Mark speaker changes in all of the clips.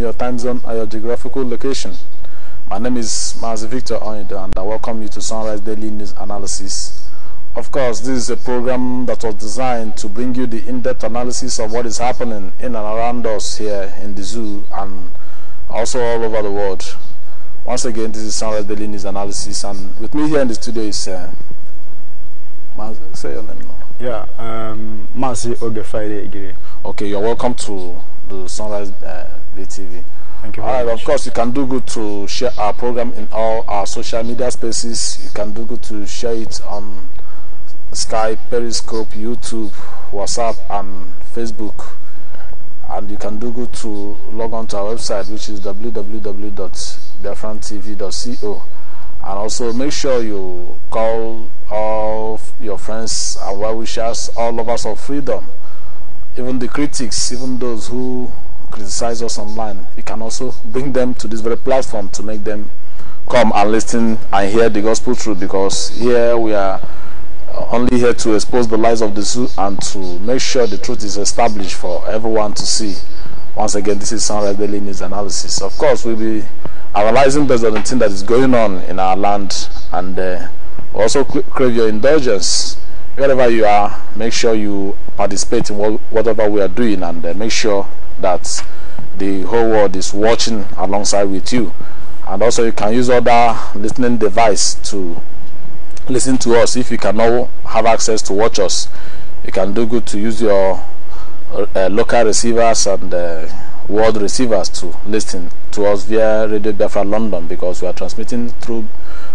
Speaker 1: your time zone
Speaker 2: or your geographical location. My name is Mazi Victor Onido and I welcome you to Sunrise Daily News Analysis. Of course, this is a program that was designed to bring you the in-depth analysis of what is happening in and around us here in the zoo and also all over the world. Once again, this is Sunrise Daily News Analysis and with me here in the studio is... Uh, say your name now.
Speaker 3: Yeah, um, Marcy
Speaker 2: Okay, you're welcome to the Sunrise uh, BTV. Thank you very much. Of course, you can do good to share our program in all our social media spaces. You can do good to share it on Skype, Periscope, YouTube, WhatsApp, and Facebook. And you can do good to log on to our website, which is www.biafrantv.co. And also make sure you call all your friends and well wishers, all lovers of freedom, even the critics, even those who criticize us online, you can also bring them to this very platform to make them come and listen and hear the gospel truth because here we are uh, only here to expose the lies of the zoo and to make sure the truth is established for everyone to see. Once again, this is Sunrise Daily News Analysis. Of course, we'll be analyzing based on the thing that is going on in our land and uh, also crave your indulgence. Wherever you are, make sure you participate in whatever we are doing and uh, make sure that the whole world is watching alongside with you and also you can use other listening device to listen to us if you cannot have access to watch us you can do good to use your uh, local receivers and uh, world receivers to listen to us via Radio Biafra London because we are transmitting through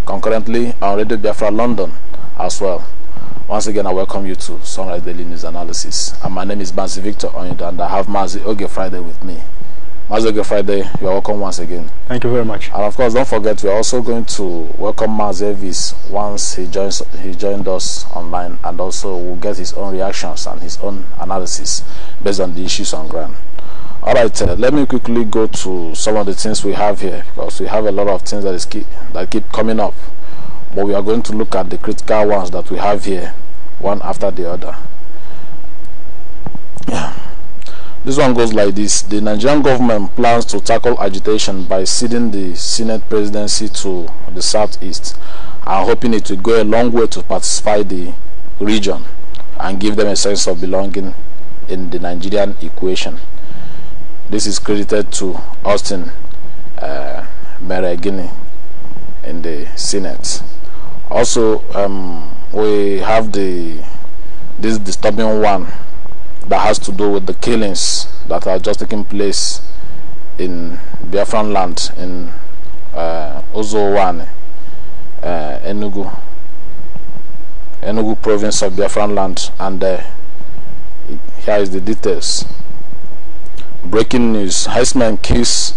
Speaker 2: concurrently on Radio Biafra London as well. Once again, I welcome you to Sunrise Daily News Analysis. And my name is Bansi Victor Onyenda. and I have Mazi Oge Friday with me. Mazi Oge Friday, you are welcome once again. Thank you very much. And of course, don't forget, we are also going to welcome Mazi Evis once he joins. He joined us online, and also will get his own reactions and his own analysis based on the issues on ground. All right, uh, let me quickly go to some of the things we have here because we have a lot of things that is keep, that keep coming up but we are going to look at the critical ones that we have here one after the other this one goes like this the nigerian government plans to tackle agitation by ceding the senate presidency to the southeast and hoping it will go a long way to pacify the region and give them a sense of belonging in the nigerian equation this is credited to austin uh, in the senate also um, we have the this disturbing one that has to do with the killings that are just taking place in Biafran land in uh, Ozowane, uh, Enugu, Enugu province of Biafran land, and uh, here is the details. Breaking news: Heisman kills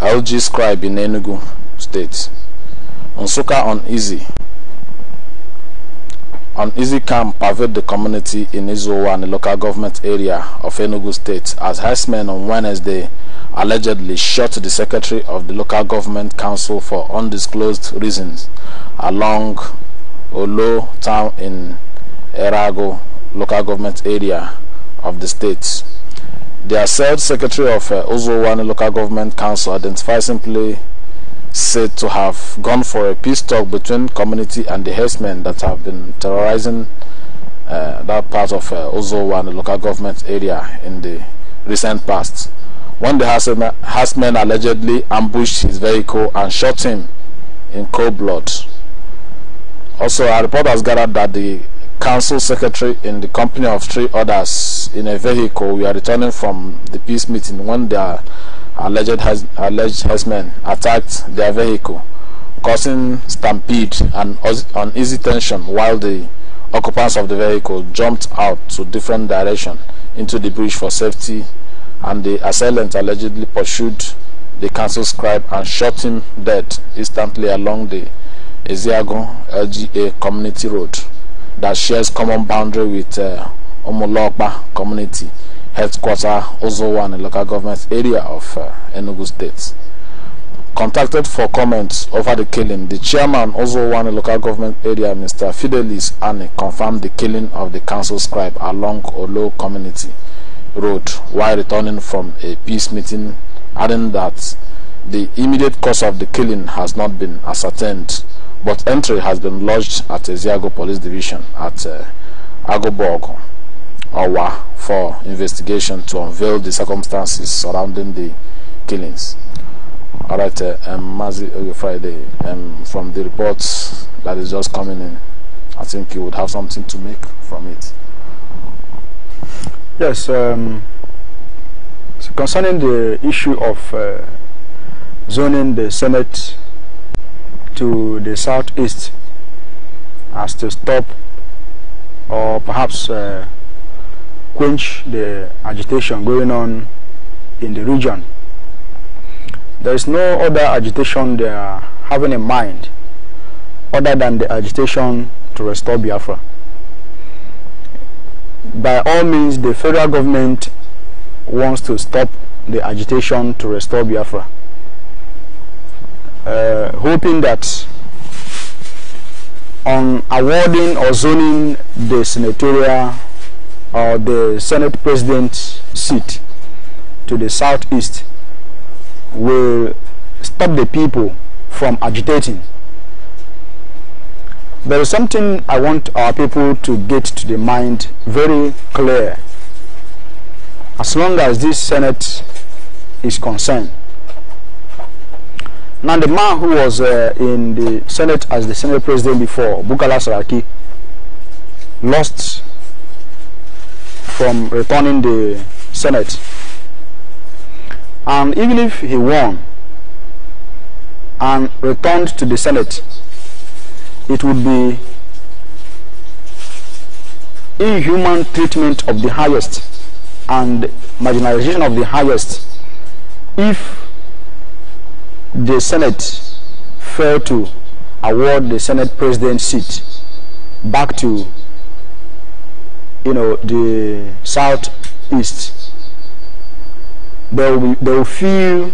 Speaker 2: LG scribe in Enugu state. Onsuka uneasy easy camp pervade the community in Izowa and the local government area of Enugu State as herdsmen on Wednesday allegedly shot the secretary of the local government council for undisclosed reasons along Olo town in Erago local government area of the state. The assailed secretary of uh, Ozowani local government council identified simply said to have gone for a peace talk between community and the herdsmen that have been terrorizing uh, that part of uh, Ozowa and the local government area in the recent past. When the herdsmen allegedly ambushed his vehicle and shot him in cold blood. Also, a report has gathered that the council secretary in the company of three others in a vehicle were returning from the peace meeting when their alleged, has, alleged herdsmen attacked their vehicle, causing stampede and uneasy tension while the occupants of the vehicle jumped out to different directions into the bridge for safety and the assailant allegedly pursued the council scribe and shot him dead instantly along the Eziago LGA community road that shares common boundary with uh, Omolokba community headquarter Ozowan local government area of uh, Enugu State. Contacted for comments over the killing, the chairman a local government area, Mr. Fidelis Anne, confirmed the killing of the council scribe along Olo community road while returning from a peace meeting, adding that the immediate cause of the killing has not been ascertained, but entry has been lodged at the Eziago Police Division at uh, Agoborgo. Awa for investigation to unveil the circumstances surrounding the killings. All right, uh, um, Mazi Friday, um, from the reports that is just
Speaker 3: coming in, I think you would have something to make from it. Yes, um, so concerning the issue of uh, zoning the Senate to the southeast as to stop or perhaps uh, quench the agitation going on in the region. There is no other agitation they are having in mind other than the agitation to restore Biafra. By all means, the federal government wants to stop the agitation to restore Biafra, uh, hoping that on awarding or zoning the senatorial or the Senate President's seat to the southeast will stop the people from agitating. There is something I want our people to get to the mind very clear. As long as this Senate is concerned. Now the man who was uh, in the Senate as the Senate President before, Bukala Saraki, lost from returning the Senate. And even if he won and returned to the Senate, it would be inhuman treatment of the highest and marginalization of the highest if the Senate failed to award the Senate president seat back to you know, the southeast, they will, be, they will feel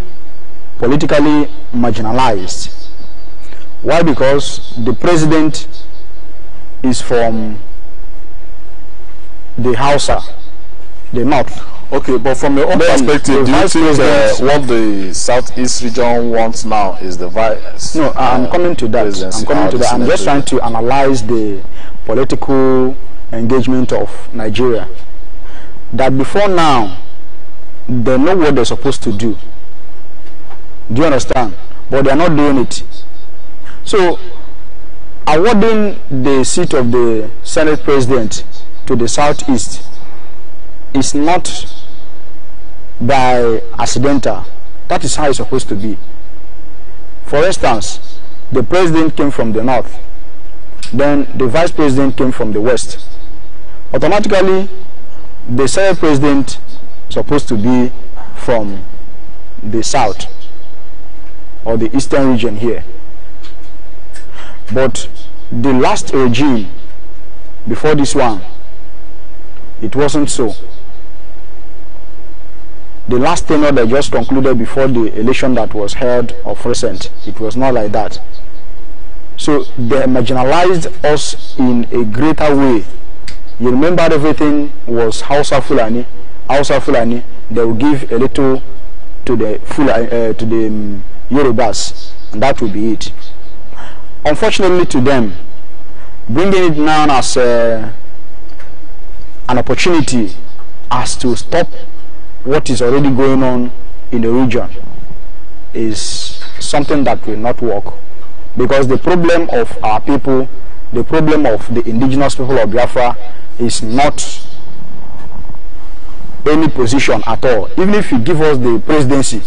Speaker 3: politically marginalized. Why? Because the president is from the Hausa, the north. Okay,
Speaker 4: but from your own then perspective, do you think what
Speaker 2: the
Speaker 3: southeast
Speaker 2: region wants now is the vice? No, I'm uh, coming to that. I'm coming to ah, that. I'm just trying
Speaker 4: to
Speaker 3: analyze the political engagement of Nigeria that before now they know what they're supposed to do. Do you understand? But they're not doing it. So, awarding the seat of the Senate President to the Southeast is not by accidental. That is how it's supposed to be. For instance, the President came from the North, then the Vice President came from the West automatically the Senate president is supposed to be from the south or the eastern region here. But the last regime before this one, it wasn't so. The last tenure that just concluded before the election that was held of recent, it was not like that. So they marginalized us in a greater way you remember everything was of Fulani. of Fulani, they will give a little to the Fulani, uh, to the um, Yorubas, and that will be it. Unfortunately to them, bringing it now as uh, an opportunity as to stop what is already going on in the region is something that will not work because the problem of our people, the problem of the indigenous people of Biafra is not any position at all. Even if you give us the presidency,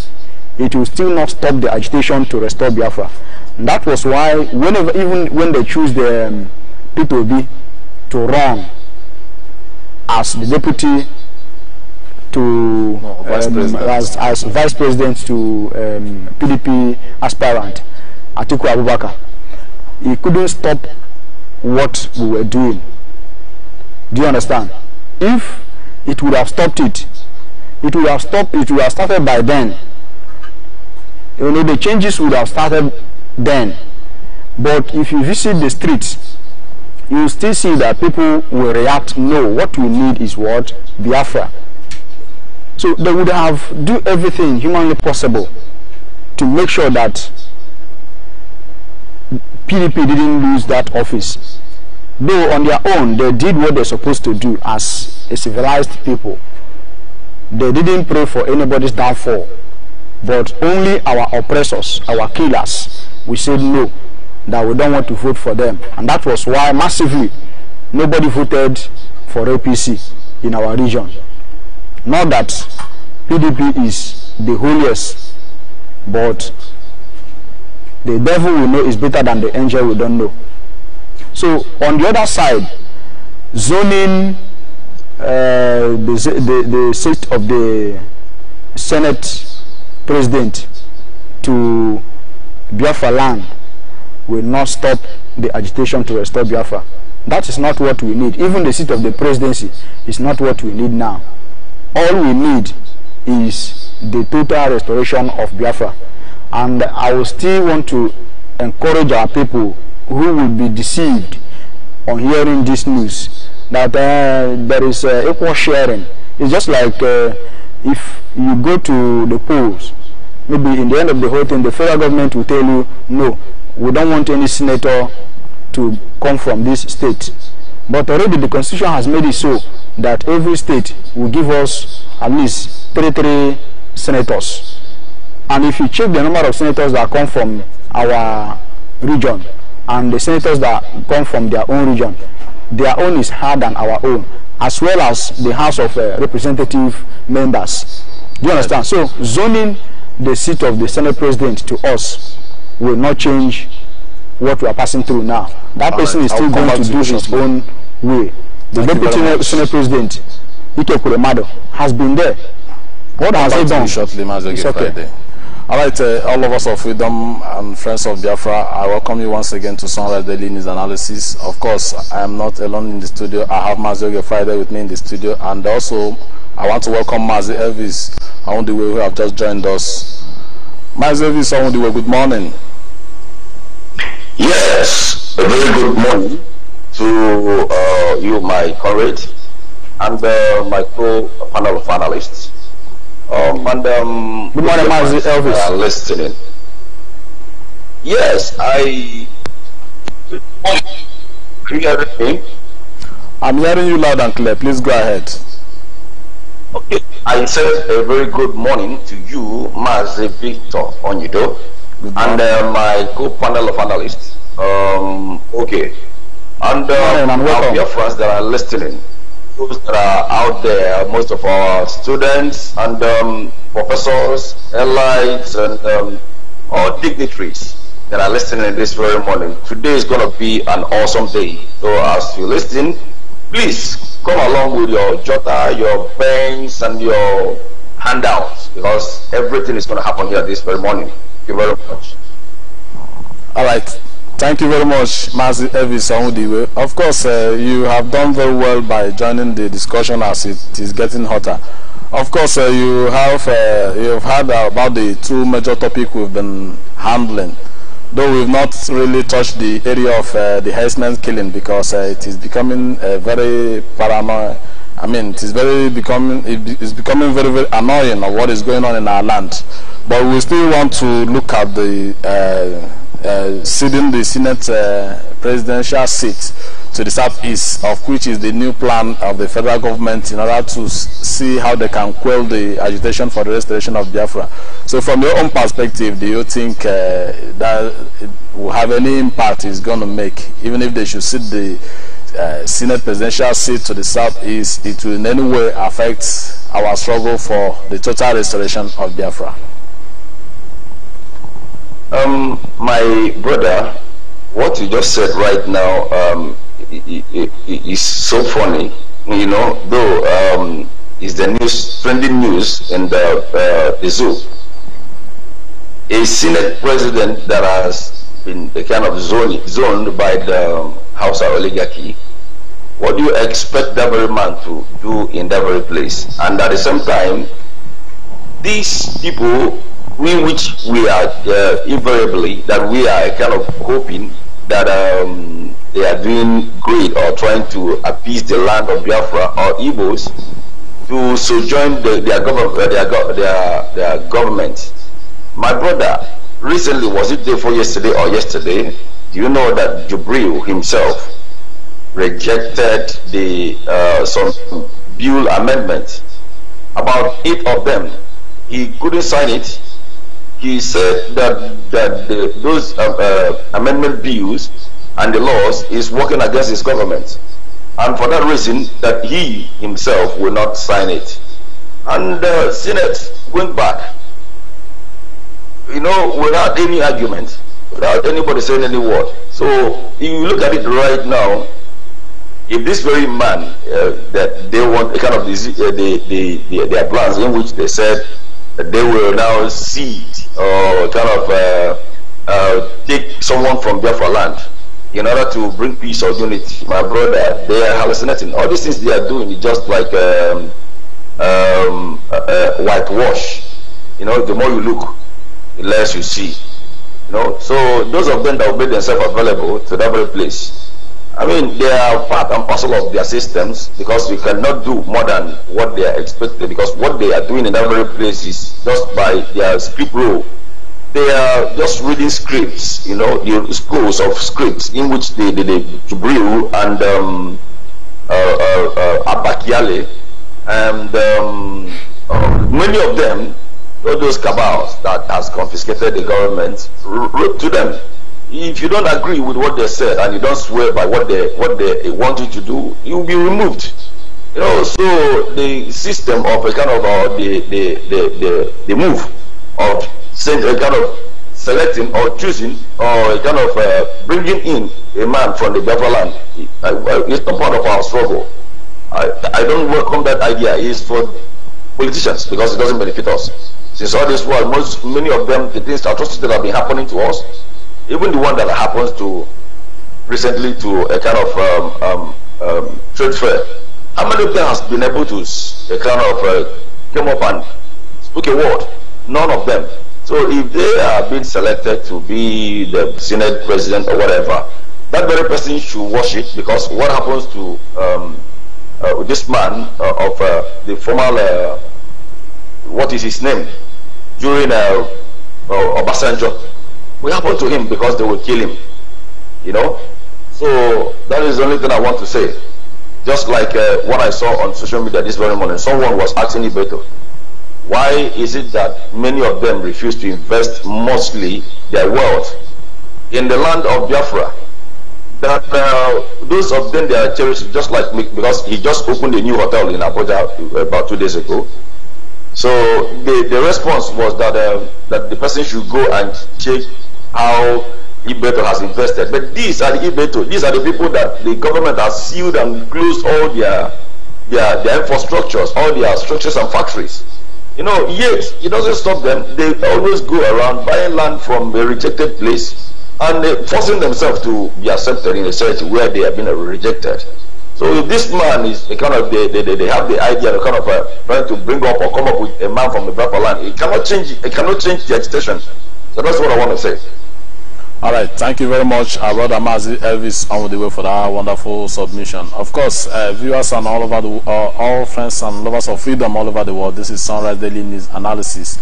Speaker 3: it will still not stop the agitation to restore Biafra. And that was why, whenever, even when they choose the um, P2B to run as the deputy to no, vice um, as, as vice president to um, PDP aspirant Atiku Abubakar, he couldn't stop what we were doing. Do you understand? If it would have stopped it, it would have stopped, it would have started by then. You know, the changes would have started then. But if you visit the streets, you still see that people will react, no, what we need is what? Biafra. So they would have do everything humanly possible to make sure that PDP didn't lose that office. though on their own they did what they're supposed to do as a civilized people. They didn't pray for anybody's downfall, but only our oppressors, our killers, we said no, that we don't want to vote for them. And that was why massively nobody voted for APC in our region. Not that PDP is the holiest, but the devil we know is better than the angel we don't know. So on the other side, zoning uh, the, the, the seat of the Senate President to Biafra land will not stop the agitation to restore Biafra. That is not what we need. Even the seat of the presidency is not what we need now. All we need is the total restoration of Biafra. And I will still want to encourage our people who will be deceived on hearing this news that uh, there is uh, equal sharing. It's just like uh, if you go to the polls, maybe in the end of the whole thing, the federal government will tell you, no, we don't want any senator to come from this state. But already the constitution has made it so that every state will give us at least 33 senators. And if you check the number of senators that come from our region, and the senators that come from their own region, their own is higher than our own, as well as the House of uh, Representative members. Do you understand? So zoning the seat of the Senate President to us will not change what we are passing through now. That All person right. is still going to, to do his own way. The Thank Deputy Senate President, Ike Kuremado, has been there. What I'll has he done? Shortly, It's okay. Friday. All right, uh,
Speaker 2: all of us of Freedom and Friends of Biafra, I welcome you once again to Sunrise Daily News Analysis. Of course, I am not alone in the studio. I have Mazioge Friday with me in the studio, and also I want to welcome Mazi Elvis Awundiwe, who have just joined us. Mazi Elvis Awundiwe, good morning.
Speaker 4: Yes, a very good morning to uh, you, my comrade, and uh, my co-panel of analysts. Um, and good morning, Mazi Elvis. Are listening. Yes, I. Good morning. Can you hear me? I'm hearing you loud and clear. Please go ahead. Okay. I said a very good morning to you, Mazi Victor Onyedo, and uh, my co-panel of analysts. Um, okay. And, um, and our dear friends that are listening. those that are out there, most of our students and um, professors, allies, and um, all dignitaries that are listening this very morning. Today is going to be an awesome day. So as you listen, please come along with your jota, your pens, and your handouts because everything is going to happen here this very morning. Thank you very much.
Speaker 2: All right. Thank you very much, Mazi Elvis Onwudiwe. Of course, uh, you have done very well by joining the discussion as it is getting hotter. Of course, uh, you have uh, you've heard about the two major topics we've been handling, though we've not really touched the area of uh, the herdsman's killing because uh, it is becoming a uh, very paranoid. I mean, it is very becoming it's becoming very very annoying of what is going on in our land. But we still want to look at the uh, ceding the Senate uh, presidential seat to the southeast, of which is the new plan of the federal government in order to see how they can quell the agitation for the restoration of Biafra. So from your own perspective, do you think uh, that will have any impact it's going to make, even if they should sit the uh, Senate presidential seat to the southeast, it will in any way affect our struggle for the total restoration of Biafra? Um, my brother, what you just said right now um, is
Speaker 4: so funny. You know, though um, is the news trending news in the, uh, the zoo. A Senate president that has been kind of zoned, zoned by the um, House oligarchy. What do you expect that very man to do in that very place? And at the same time, these people in which we are uh, invariably that we are kind of hoping that um, they are doing great or trying to appease the land of Biafra or Igbos to sojourn the, their, gov uh, their, go their, their, government. My brother, recently, was it before yesterday or yesterday, do you know that Jubril himself rejected the uh, some bill amendment, about eight of them. He couldn't sign it he said that that the, those uh, uh, amendment bills and the laws is working against his government, and for that reason that he himself will not sign it. And the Senate went back, you know, without any argument, without anybody saying any word. So if you look at it right now, if this very man uh, that they want a kind of the, the, the, the, their plans in which they said that they will now see or kind of uh, uh, take someone from there for land in order to bring peace or unity. My brother, they are hallucinating. All these things they are doing is just like um, um, uh, whitewash. You know, the more you look, the less you see. You know, so those of them that will make themselves available to that very place, I mean, they are part and parcel of their systems because we cannot do more than what they are expected because what they are doing in every place is just by their script rule. They are just reading scripts, you know, the scrolls of scripts in which they, they, they brew and um, uh, uh, uh, Abakiale and um, uh, many of them, all those cabals that has confiscated the government, wrote to them if you don't agree with what they said and you don't swear by what they what they want you to do, you'll be removed. You know, so the system of a kind of uh, the, the, the, the, the move of saying a kind of selecting or choosing or a kind of uh, bringing in a man from the Biafra land is not part of our struggle. I, I don't welcome that idea. is for politicians because it doesn't benefit us. Since all this world, most many of them, the things atrocities that have been happening to us even the one that happens to recently to a kind of um, um, um, trade fair. How many has been able to a kind of uh, came up and spoke a word? None of them. So if they are being selected to be the senate president or whatever, that very person should watch it because what happens to um, uh, this man uh, of uh, the former, uh, what is his name, during uh, uh Obasanjo, will happen to him because they will kill him. You know? So that is the only thing I want to say. Just like uh, what I saw on social media this very morning, someone was asking Ibeto, why is it that many of them refuse to invest mostly their wealth in the land of Biafra? That uh, those of them they are cherished just like me because he just opened a new hotel in Abuja uh, about two days ago. So the, the response was that that the person should go and check how Ibeto has invested. But these are the Ibeto, these are the people that the government has sealed and closed all their their, their infrastructures, all their structures and factories. You know, yet it doesn't stop them. They always go around buying land from a rejected place and uh, forcing themselves to be accepted in a church where they have been rejected. So if this man is a kind of they, they, they have the idea the kind of uh, trying to bring up or come up with a man from the proper land, it cannot change it cannot change the agitation So that's what I want to say.
Speaker 2: All right, thank you very much, our uh, brother Mazi Elvis, on the way for that wonderful submission. Of course, uh, viewers and all over the uh, all friends and lovers of freedom all over the world. This is Sunrise Daily News Analysis,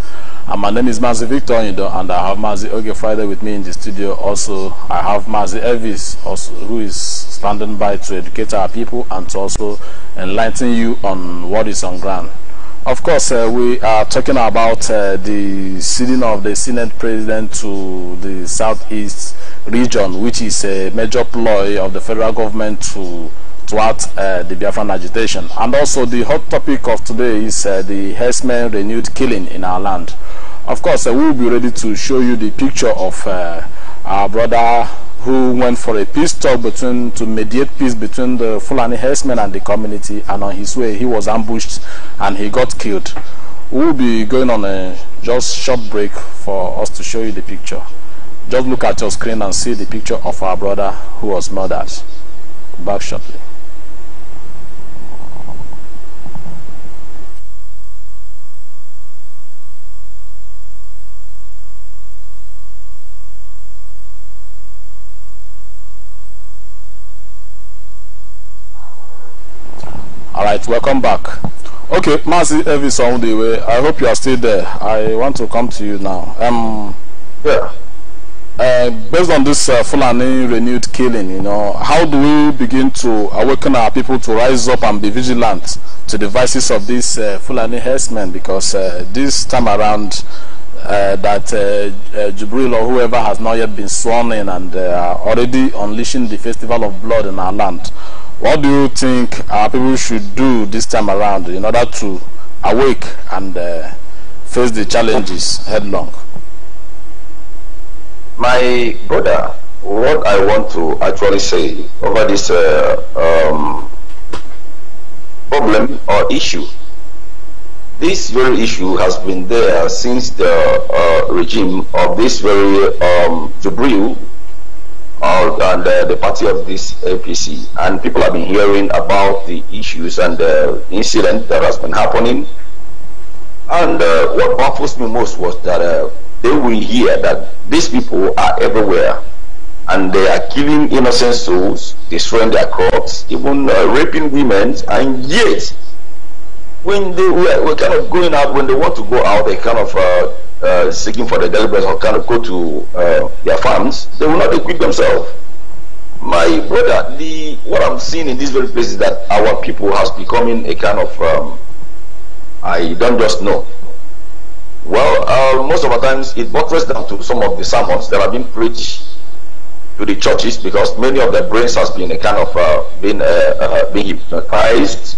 Speaker 2: and uh, my name is Mazi Victor Indo, and I have Mazi Oge Friday with me in the studio. Also, I have Mazi Elvis, also, who is standing by to educate our people and to also enlighten you on what is on ground. Of course, uh, we are talking about uh, the sitting of the Senate President to the Southeast region, which is a major ploy of the federal government to thwart uh, the Biafran agitation. And also, the hot topic of today is uh, the herdsmen renewed killing in our land. Of course, uh, we will be ready to show you the picture of uh, our brother who went for a peace talk between to mediate peace between the Fulani herdsmen and the community and on his way he was ambushed and he got killed. We'll be going on a just short break for us to show you the picture. Just look at your screen and see the picture of our brother who was murdered. Back shortly. all right welcome back okay Mazi Elvis way I hope you are still there I want to come to you now um yeah uh, based on this uh, Fulani renewed killing, you know, how do we begin to awaken our people to rise up and be vigilant to the vices of these uh, Fulani herdsmen? Because uh, this time around, uh, that uh, uh, Jubril or whoever has not yet been sworn in and uh, already unleashing the festival of blood in our land. What do you think our people should do this time around in order to awake and uh, face the challenges headlong?
Speaker 4: My brother, what I want to actually say over this uh, um, problem or issue, this very issue has been there since the uh, regime of this very um, Jubril and uh, the party of this APC. And people have been hearing about the issues and the incident that has been happening. And uh, what baffles me most was that uh, they will hear that these people are everywhere and they are killing innocent souls, destroying their crops, even uh, raping women, and yet when they were, were, kind of going out, when they want to go out, they kind of uh, uh, seeking for the deliverance or kind of go to uh, their farms, they will not equip themselves. My brother, the what I'm seeing in this very place is that our people has becoming a kind of um, I don't just know. Well, uh, most of the times it buttresses down to some of the sermons that have been preached to the churches because many of their brains has been a kind of uh, been uh, uh, being hypnotized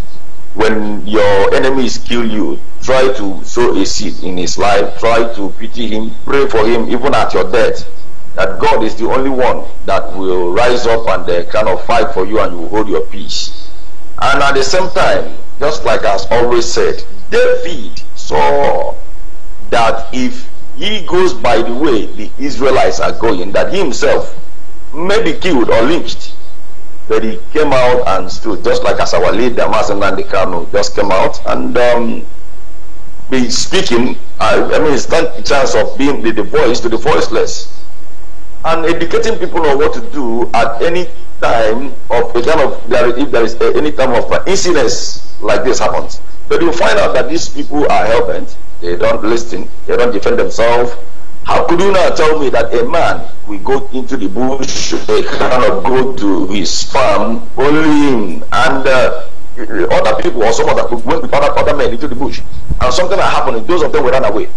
Speaker 4: when your enemies kill you, try to sow a seed in his life, try to pity him, pray for him, even at your death. That God is the only one that will rise up and uh, kind of fight for you and you hold your peace. And at the same time, just like I always said, David saw that if he goes by the way the Israelites are going, that he himself may be killed or lynched. But he came out and stood, just like as our leader, the Nandikano, just came out and um, be speaking. I, I mean, it's the chance of being the, the voice to the voiceless and educating people on what to do at any time of a kind of if there is uh, any time of uh, incidents like this happens. But you find out that these
Speaker 1: people are helping. They don't
Speaker 4: listen. They don't defend themselves. How could you not tell me that a man will go into the bush, a cannot go to his farm, only him and uh, other people or some other went with other, other men into the bush, and something that happened, those of them were run away.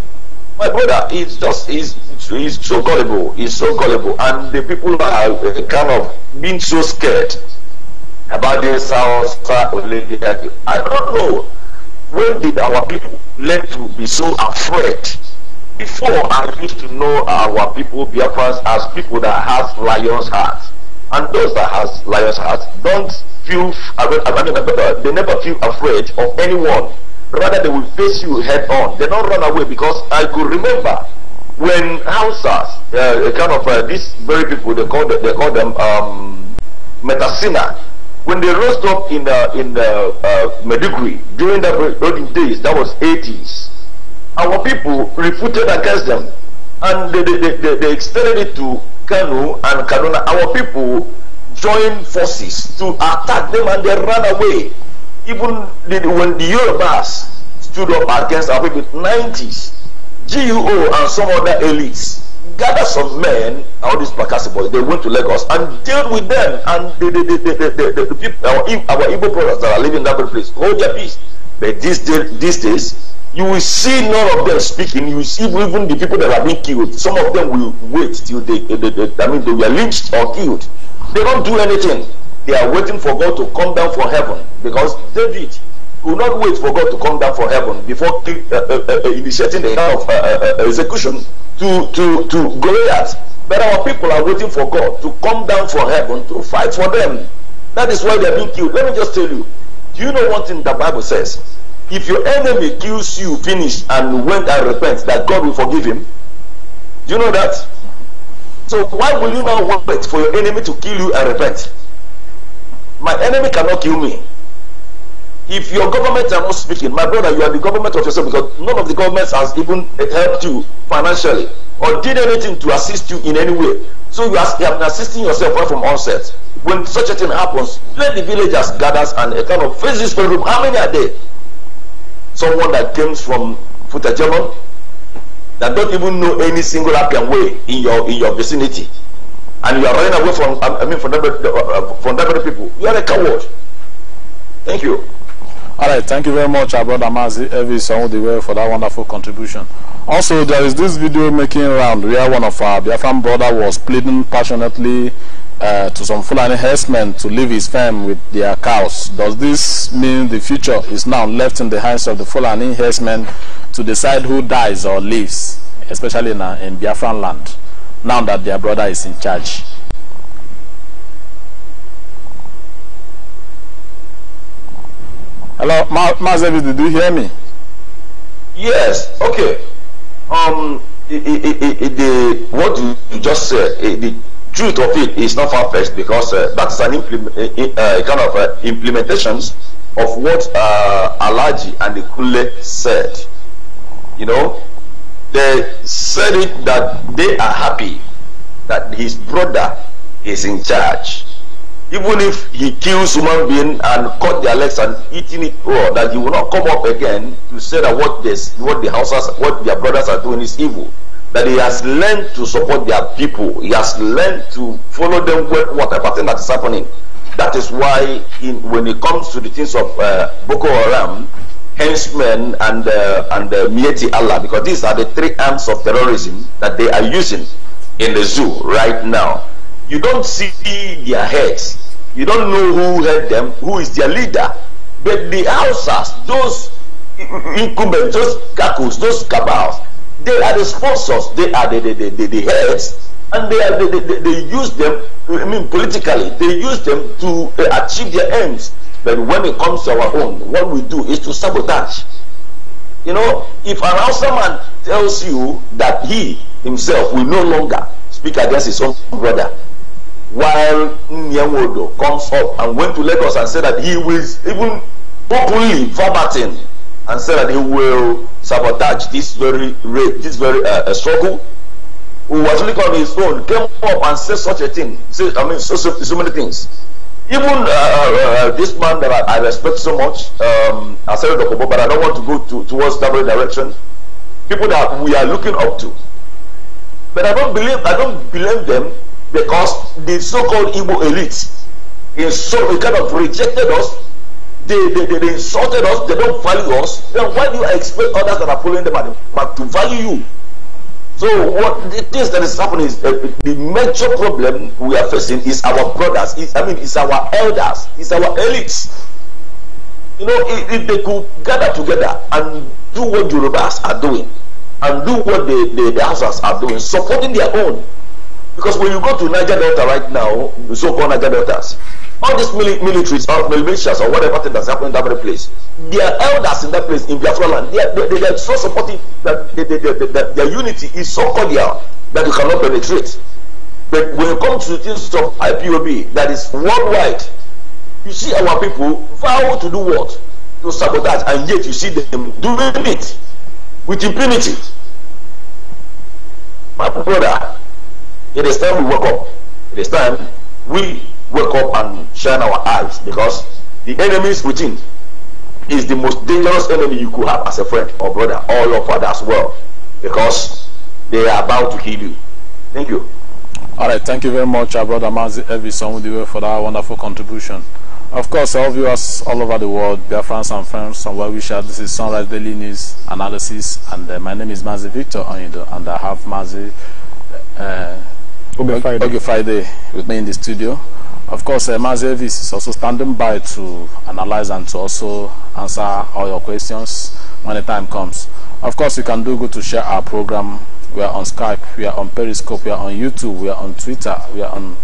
Speaker 4: My brother is just is is so gullible, is so gullible, and the people are uh, kind of being so scared about this I don't know when did our people learn to be so afraid before, I used to know our people, Biafrans, as people that has lion's hearts. And those that has lion's hearts don't feel, they never feel afraid of anyone. Rather, they will face you head on. They don't run away because I could remember when Hausas, uh, kind of uh, these very people, they call them, they call them um, Metasina, when they rose up in the, in the uh, during the olden days, that was 80s, our people refuted against them and they, they, they, they extended it to Kanu and Kaduna. Our people joined forces to attack them and they ran away. Even the, when the Yorubas stood up against our people, 90s, GUO and some other elites gathered some men, all these Pakasi boys, they went to Lagos and dealt with them and the, the, the, the, the, the, the people, our, our Igbo brothers that are living in that place, hold their peace. But these, day, these days, you will see none of them speaking. You will see even the people that are being killed. Some of them will wait till they, they, they, they I mean, they were lynched or killed. They don't do anything. They are waiting for God to come down from heaven because David will not wait for God to come down from heaven before uh, uh, uh, uh, initiating the kind of uh, uh, execution to to to Goliath. But our people are waiting for God to come down from heaven to fight for them. That is why they are being killed. Let me just tell you. Do you know one thing the Bible says? if your enemy kills you, finish, and went and repent, that God will forgive him. Do you know that? So why will you now wait for your enemy to kill you and repent? My enemy cannot kill me. If your government are not speaking, my brother, you are the government of yourself because none of the governments has even helped you financially or did anything to assist you in any way. So you are, you are assisting yourself right from onset. When such a thing happens, let the villagers gather and a kind of face this problem. How many are there? someone that comes from Futajeman that don't even know any single Appian way in your in your vicinity, and you are running away from I mean from that from that very people, you are a coward. Thank you.
Speaker 2: All right, thank you very much, our brother Mazi Evis Onwudiwe, for that wonderful contribution. Also, there is this video making round where one of our Biafran brother was pleading passionately Uh, to some Fulani herdsmen to leave his farm with their cows. Does this mean the future is now left in the hands of the Fulani herdsmen to decide who dies or lives, especially in, in Biafran land, now that their brother is in charge?
Speaker 4: Hello, Mazevi, did you hear me? Yes, okay. Um, it, it, it, the, what you just said, the truth of it is not far-fetched because uh, that is an uh, kind of uh, implementations of what uh, Alaji and the Kule said. You know, they said it that they are happy that his brother is in charge. Even if he kills human being and cut their legs and eating it raw, that he will not come up again to say that what this, what the houses, what their brothers are doing is evil. that he has learned to support their people. He has learned to follow them with whatever thing that is happening. That is why, in, when it comes to the things of uh, Boko Haram, henchmen, and uh, and uh, Mieti Allah, because these are the three arms of terrorism that they are using in the zoo right now. You don't see their heads. You don't know who led them, who is their leader. But the Hausas, those incumbents, those kakos, those cabals, They are the sponsors. They are the, the, the, the, heads. And they, are, they, they, they use them, I mean, politically, they use them to uh, achieve their aims. But when it comes to our own, what we do is to sabotage. You know, if an outside man tells you that he himself will no longer speak against his own brother, while Nyanwodo comes up and went to Lagos and said that he will even openly verbatim and said that he will sabotage this very this very uh, struggle who was looking on his own came up and said such a thing i mean so, so, so many things even uh, uh, uh, this man that I, I respect so much um I said but I don't want to go to, towards that very direction people that we are looking up to but I don't believe I don't blame them because the so-called Igbo elite in so kind of rejected us they, they, they, they insulted us, they don't value us, then why do you expect others that are following them at the back to value you? So what the things that is happening is uh, the major problem we are facing is our brothers. It's, I mean, it's our elders. It's our elites. You know, if, if they could gather together and do what Yorubas are doing, and do what the the, the Hausas are doing, supporting their own. Because when you go to Niger Delta right now, so-called Niger Deltas, all these mili- militaries or militias or whatever thing that's happening in that very place, their elders in that place in Biafra land, they are, they, they, are so supportive that they, they, they, they, their unity is so cordial that you cannot penetrate. But when it comes to things of IPOB that is worldwide, you see our people vow to do what? To sabotage, and yet you see them doing it with impunity. My brother, it is time we woke up. It is time we wake up and shine our eyes because the enemies within is the most dangerous enemy you could have as a friend or brother or your father as well because they are about to kill you.
Speaker 2: Thank you. All right, thank you very much, our brother Mazi Evison, for that wonderful contribution. Of course, all viewers all over the world, dear friends and friends, and well wishers, this is Sunrise Daily News Analysis, and uh, my name is Mazi Victor Onido, and I have Mazi uh, Friday. Friday with me in the studio. Of course, uh, Mazevis is also standing by to analyze and to also answer all your questions when the time comes. Of course, you can do good to share our program. We are on Skype, we are on Periscope, we are on YouTube, we are on Twitter, we are on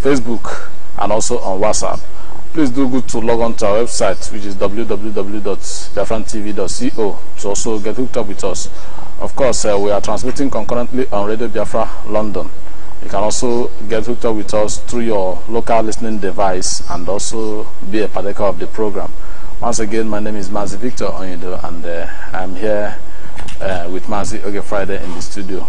Speaker 2: Facebook, and also on WhatsApp. Please do good to log on to our website, which is www.biafrantv.co, to also get hooked up with us. Of course, uh, we are transmitting concurrently on Radio Biafra London. You can also get hooked up with us through your local listening device and also be a partaker of the program. Once again, my name is Mazi Victor Onyedo, and uh, I'm here uh, with Mazi Oge Friday in the studio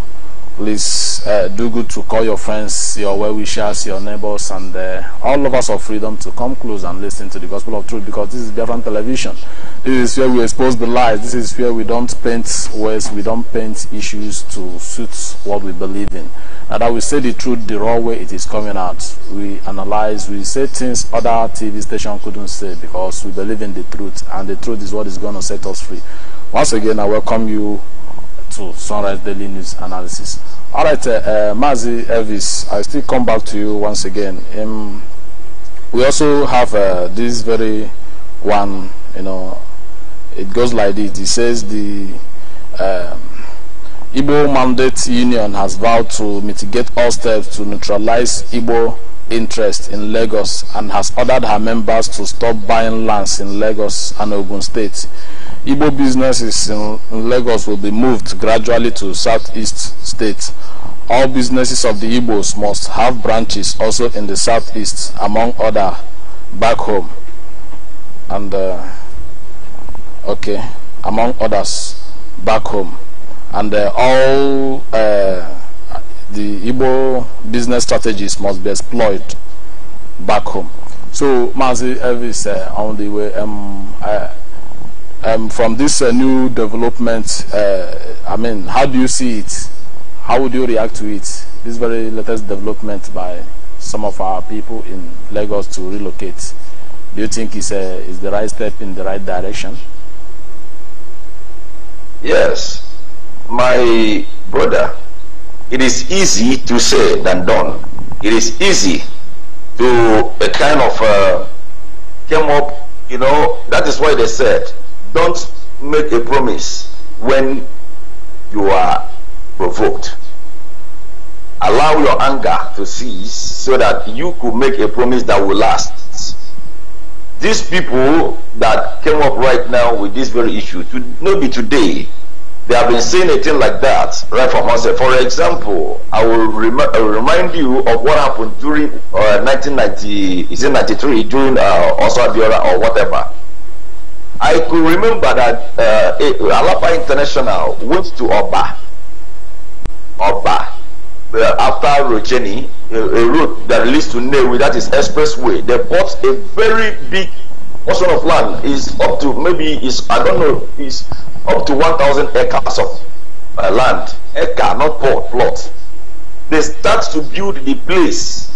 Speaker 2: please uh, do good to call your friends, your well-wishers, your neighbors, and uh, all us of freedom to come close and listen to the gospel of truth because this is Biafran television. This is where we expose the lies. This is where we don't paint words, we don't paint issues to suit what we believe in. And that we say the truth the raw way it is coming out. We analyze, we say things other TV stations couldn't say because we believe in the truth and the truth is what is going to set us free. Once again, I welcome you to Sunrise Daily News Analysis. All right, uh, uh, Mazi Elvis, I still come back to you once again. Um, we also have uh, this very one, you know, it goes like this. It says the um, Igbo Mandate Union has vowed to mitigate all steps to neutralize Igbo interest in Lagos and has ordered her members to stop buying lands in Lagos and Ogun State. Igbo businesses in, Lagos will be moved gradually to southeast states. All businesses of the Igbos must have branches also in the southeast, among other back home. And, uh, okay, among others back home. And uh, all... Uh, the Igbo business strategies must be exploited back home. So, Mazi Elvis, uh, on the way, um, uh, um, from this uh, new development, uh, I mean, how do you see it? How would you react to it? This very latest development by some of our people in Lagos to relocate. Do you think it's, a, uh, it's the right step in the right direction?
Speaker 4: Yes. My brother, it is easy to say than done. It is easy to a kind of uh, came up, you know, that is why they said, don't make a promise when you are provoked. Allow your anger to cease so that you could make a promise that will last. These people that came up right now with this very issue, to, maybe today, They have been seeing a thing like that right from onset. For example, I will, rem- I will remind you of what happened during uh, 1990, is it 93, during uh, Osabiola or whatever. I could remember that uh, Alapa International went to Oba. Oba. Uh, after Rogeni, a, a road that leads to Newi, that is expressway, they bought a very big portion of land. Is up to maybe is I don't know is up to 1,000 acres of uh, land, acre, not plot, plot. They start to build the place.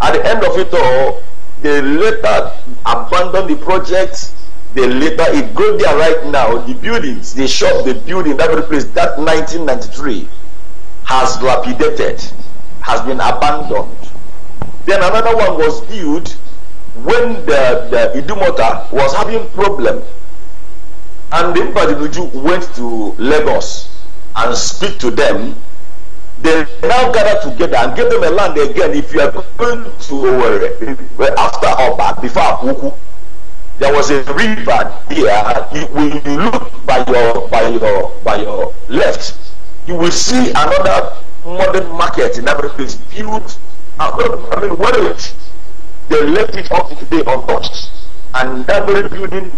Speaker 4: At the end of it all, they later abandon the project. They later, it go there right now, the buildings, they shop, the building, every place, that 1993 has dilapidated, has been abandoned. Then another one was built when the, the Idumota was having problems. And the Mbadinuju went to Lagos and speak to them. They now gather together and give them a land again. If you are going to uh, after Oba, before Apuku, there was a river here. You, when you look by your by your by your left, you will see another modern market in every place built. I mean, well, they left it up today untouched, and every building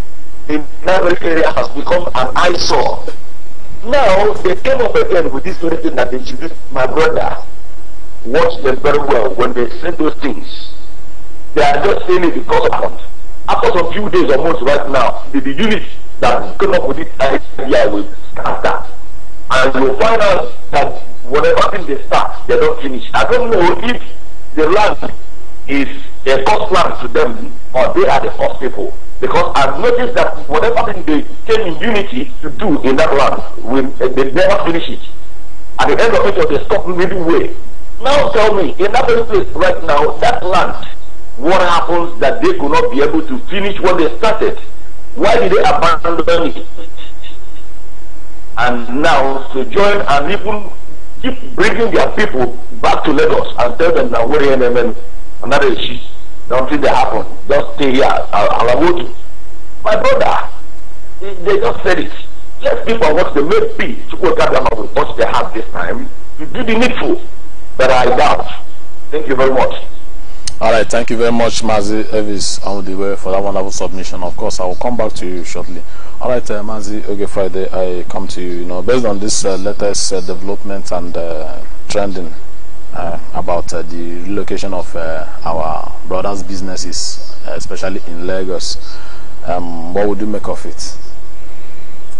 Speaker 4: The that area has become an eyesore. Now they came up again with this very thing that they should do. My brother, watched them very well when they said those things. They are just saying it because of it. After some few days or months right now, the, the unit that came up with this idea will start that. And you'll find out that whatever thing they start, they not finished. I don't know if the land is A first land to them, or they are the first people. Because I've noticed that whatever thing they came in unity to do in that land, we, they never finish it. At the end of it, they stop midway. Now tell me, in that place right now, that land, what happens that they could not be able to finish what they started? Why did they abandon it? And now to join and even keep bringing their people back to Lagos and tell them that we're in and that is Nothing they happen. Just stay here. I'll, I'll My brother, they, just said it. Let people what they may be to go gather up with what they have this time. You will the needful, but I doubt. Thank you very much.
Speaker 2: All right, thank you very much, Mazi Evis Audiwe, for that wonderful submission. Of course, I will come back to you shortly. All right, uh, Mazi okay, Friday, I come to you. You know, based on this uh, latest uh, development and uh, trending uh, about uh, the relocation of uh, our brothers' businesses, uh,
Speaker 3: especially in Lagos. Um, what would you make of it?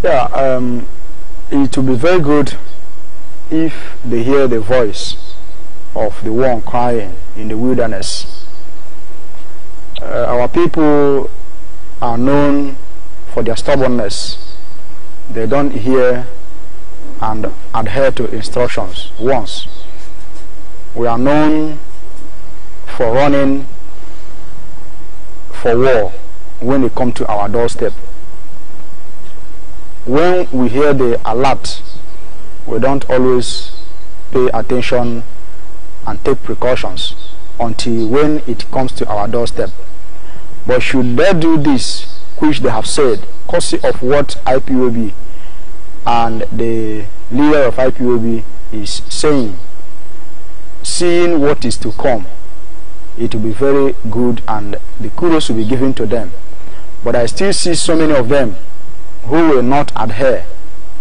Speaker 3: Yeah, um, it would be very good if they hear the voice of the one crying in the wilderness. Uh, our people are known for their stubbornness. They don't hear and adhere to instructions once we are known for running for war when they come to our doorstep. When we hear the alert, we don't always pay attention and take precautions until when it comes to our doorstep. But should they do this, which they have said, courtesy of what IPOB and the leader of IPOB is saying seeing what is to come, it will be very good and the kudos will be given to them. But I still see so many of them who will not adhere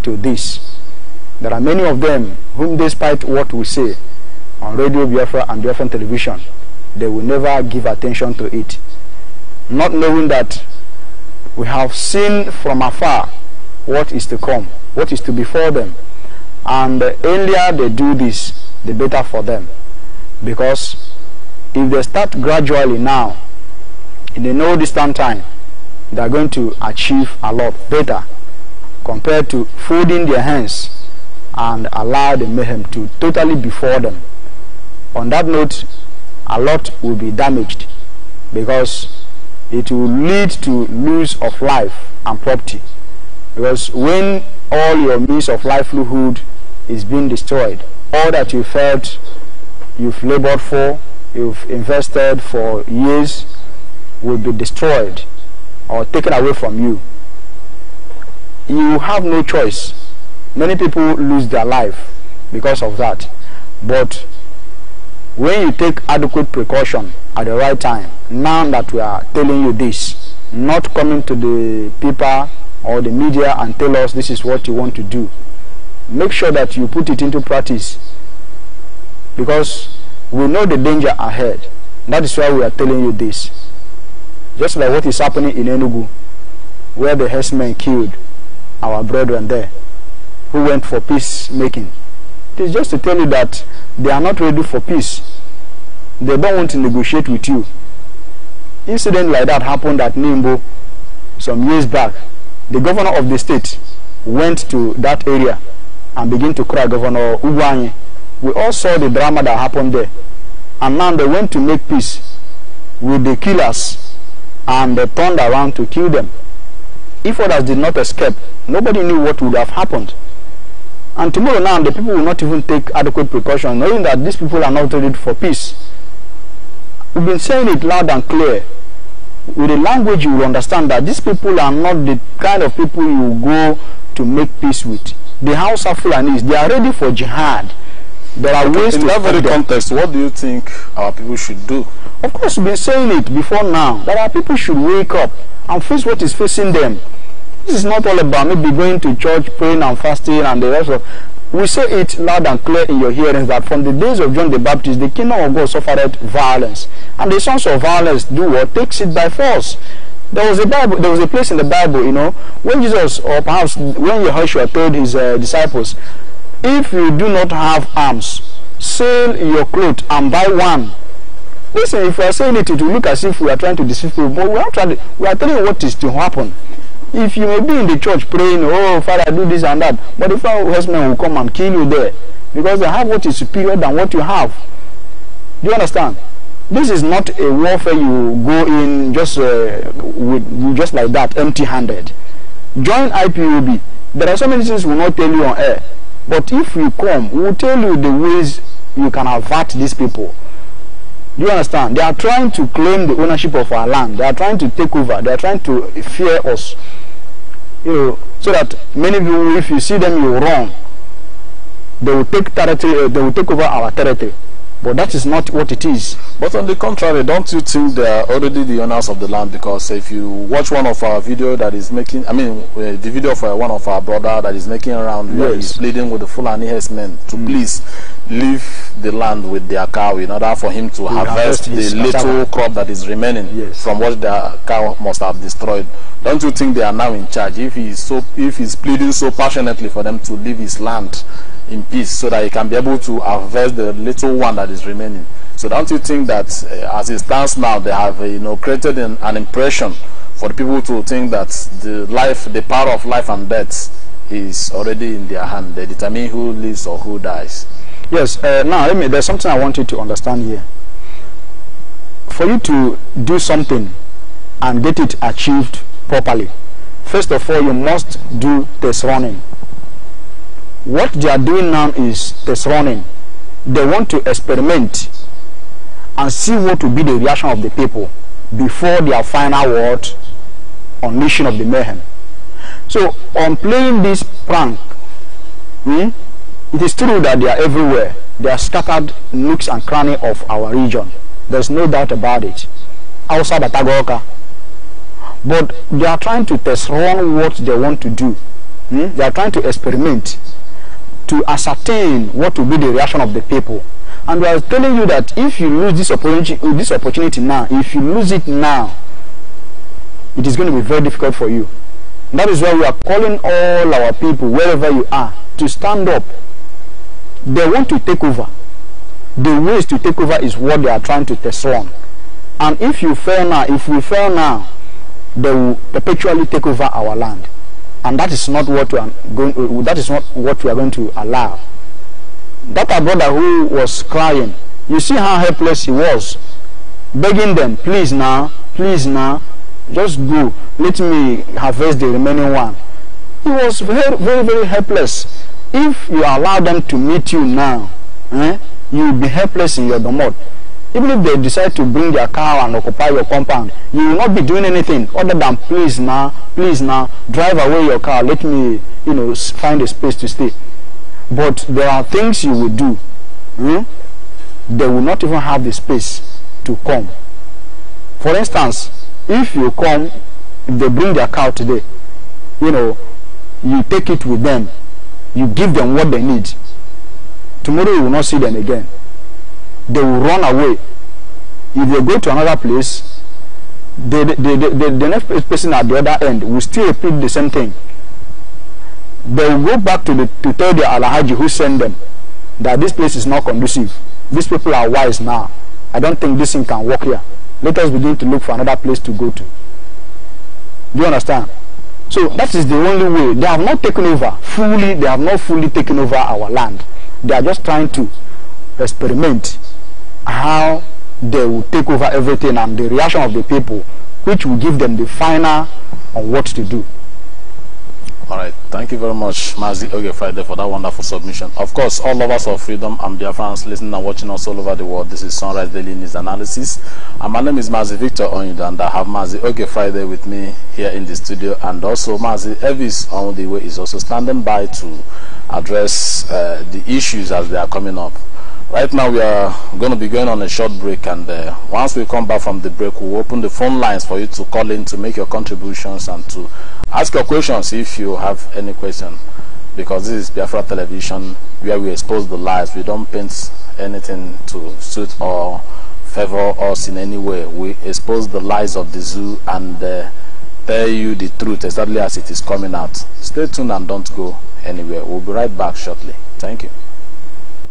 Speaker 3: to this. There are many of them whom, despite what we say on Radio Biafra and Biafra television, they will never give attention to it. Not knowing that we have seen from afar what is to come, what is to befall them. And the earlier they do this, the better for them. Because if they start gradually now, in the no distant time, they are going to achieve a lot better compared to folding their hands and allow the mayhem to totally befall them. On that note, a lot will be damaged because it will lead to loss of life and property. Because when all your means of livelihood is being destroyed. All that you felt you've labored for, you've invested for years, will be destroyed or taken away from you. You have no choice. Many people lose their life because of that. But when you take adequate precaution at the right time, now that we are telling you this, not coming to the paper or the media and tell us this is what you want to do, make sure that you put it into practice because we know the danger ahead. That is why we are telling you this. Just like what is happening in Enugu, where the herdsmen killed our brethren there, who went for peace making. It is just to tell you that they are not ready for peace. They don't want to negotiate with you. Incident like that happened at Nimbo some years back. The governor of the state went to that area and begin to cry, Governor Uguanyi. We all saw the drama that happened there. And now they went to make peace with the killers and they turned around to kill them. If others did not escape, nobody knew what would have happened. And tomorrow now, the people will not even take adequate precaution, knowing that these people are not ready for peace. We've been saying it loud and clear. With the language, you will understand that these people are not the kind of people you go to make peace with. the house Hausa Fulanis, they are ready for jihad.
Speaker 4: There are ways in to that very context,
Speaker 3: what do you think our people should do? Of course, we've been saying it before now that our people should wake up and face what is facing them. This is not all about maybe going to church, praying and fasting and the rest of we say it loud and clear in your hearings that from the days of John the Baptist, the kingdom of God suffered violence. And the sons of violence do what? Takes it by force. There was a Bible. There was a place in the Bible, you know, when Jesus or perhaps when Yahushua told his uh, disciples, "If you do not have arms, sell your clothes and buy one." Listen, if we are saying it, it will look as if we are trying to deceive people, but we are trying. we are telling you what is to happen. If you may be in the church praying, "Oh Father, do this and that," but the foul horsemen will come and kill you there because they have what is superior than what you have. Do you understand? This is not a warfare you go in just uh, with just like that, empty-handed. Join IPUB. There are so many things we will not tell you on air, but if you come, we will tell you the ways you can avert these people. Do you understand? They are trying to claim the ownership of our land. They are trying to take over. They are trying to fear us. You know, so that many people, if you see them, you run. They will take territory. Uh, they will take over our territory. But that is not what it is. But on the contrary, don't you think they are already the owners of the
Speaker 2: land? Because if you watch one of our video that is making, I mean, uh, the video for one of our brother that is making around, yes. he's pleading with the Fulani men to mm. please leave the land with their cow in order for him to harvest, harvest the little crop that is remaining yes. from what their cow must have destroyed. Don't you think they are now in charge? If he is so, if he's pleading so passionately for them to leave his land, in peace so that he can be able to harvest the little one that is remaining. So don't you think that uh, as it stands now, they have uh, you know created an, an, impression for the people to think that the life, the power of life and death
Speaker 3: is already in their hand. They determine who lives or who dies. Yes. Uh, now, me, there's something I want you to understand here. For you to do something and get it achieved properly, first of all, you must do this running what they are doing now is test running. They want to experiment and see what will be the reaction of the people before their final word on mission of the mayhem. So on playing this prank, hmm, it is true that they are everywhere. They are scattered nooks and crannies of our region. There's no doubt about it. Outside Atagoka. But they are trying to test run what they want to do. Hmm? They are trying to experiment to ascertain what will be the reaction of the people. And I was telling you that if you lose this opportunity, uh, this opportunity now, if you lose it now, it is going to be very difficult for you. that is why we are calling all our people, wherever you are, to stand up. They want to take over. The ways to take over is what they are trying to test on. And if you fail now, if we fail now, they will perpetually take over our land. and that is not what we are going uh, that is not what we are going to allow that our brother who was crying you see how helpless he was begging them please now please now just go let me harvest the remaining one he was very very, very helpless if you allow them to meet you now eh, you will be helpless in your domot even if they decide to bring their car and occupy your compound you will not be doing anything other than please now please now drive away your car let me you know find a space to stay but there are things you will do hmm? they will not even have the space to come for instance if you come if they bring their car today you know you take it with them you give them what they need tomorrow you will not see them again they will run away if they go to another place the the the, the, the next person at the other end will still repeat the same thing they will go back to the to tell the alahaji who sent them that this place is not conducive these people are wise now i don't think this thing can work here let us begin to look for another place to go to do you understand so that is the only way they have not taken over fully they have not fully taken over our land they are just trying to experiment how they will take over everything and the reaction of the people, which will give them the final on what to do. All right. Thank you very much,
Speaker 2: Mazi Oge Friday, for that wonderful submission. Of course, all lovers of freedom and dear friends, listening and watching us all over the world, this is Sunrise Daily News Analysis. And my name is Mazi Victor Onyuda, and I have Mazi Oge Friday with me here in the studio. And also, Mazi Elvis on the way is also standing by to address uh, the issues as they are coming up. Right now we are going to be going on a short break and uh, once we come back from the break we'll open the phone lines for you to call in to make your contributions and to ask your questions if you have any question because this is Biafra television where we expose the lies we don't paint anything to suit or favor us in any way we expose the lies of the zoo and uh, tell you the truth exactly as it is coming out stay tuned and don't go anywhere we'll be right back shortly thank you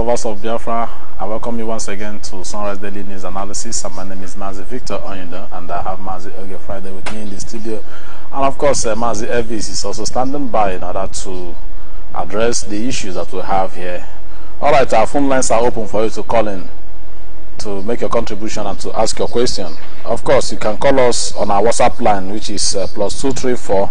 Speaker 2: lovers of Biafra, I welcome you once again to Sunrise Daily News Analysis. And uh, my name is Mazi Victor Onyunda, and I have Mazi Oge Friday with me in the studio. And of course, uh, Mazi Elvis is also standing by in order to address the issues that we have here. All right, our phone lines are open for you to call in to make your contribution and to ask your question. Of course, you can call us on our WhatsApp line, which is uh, plus 234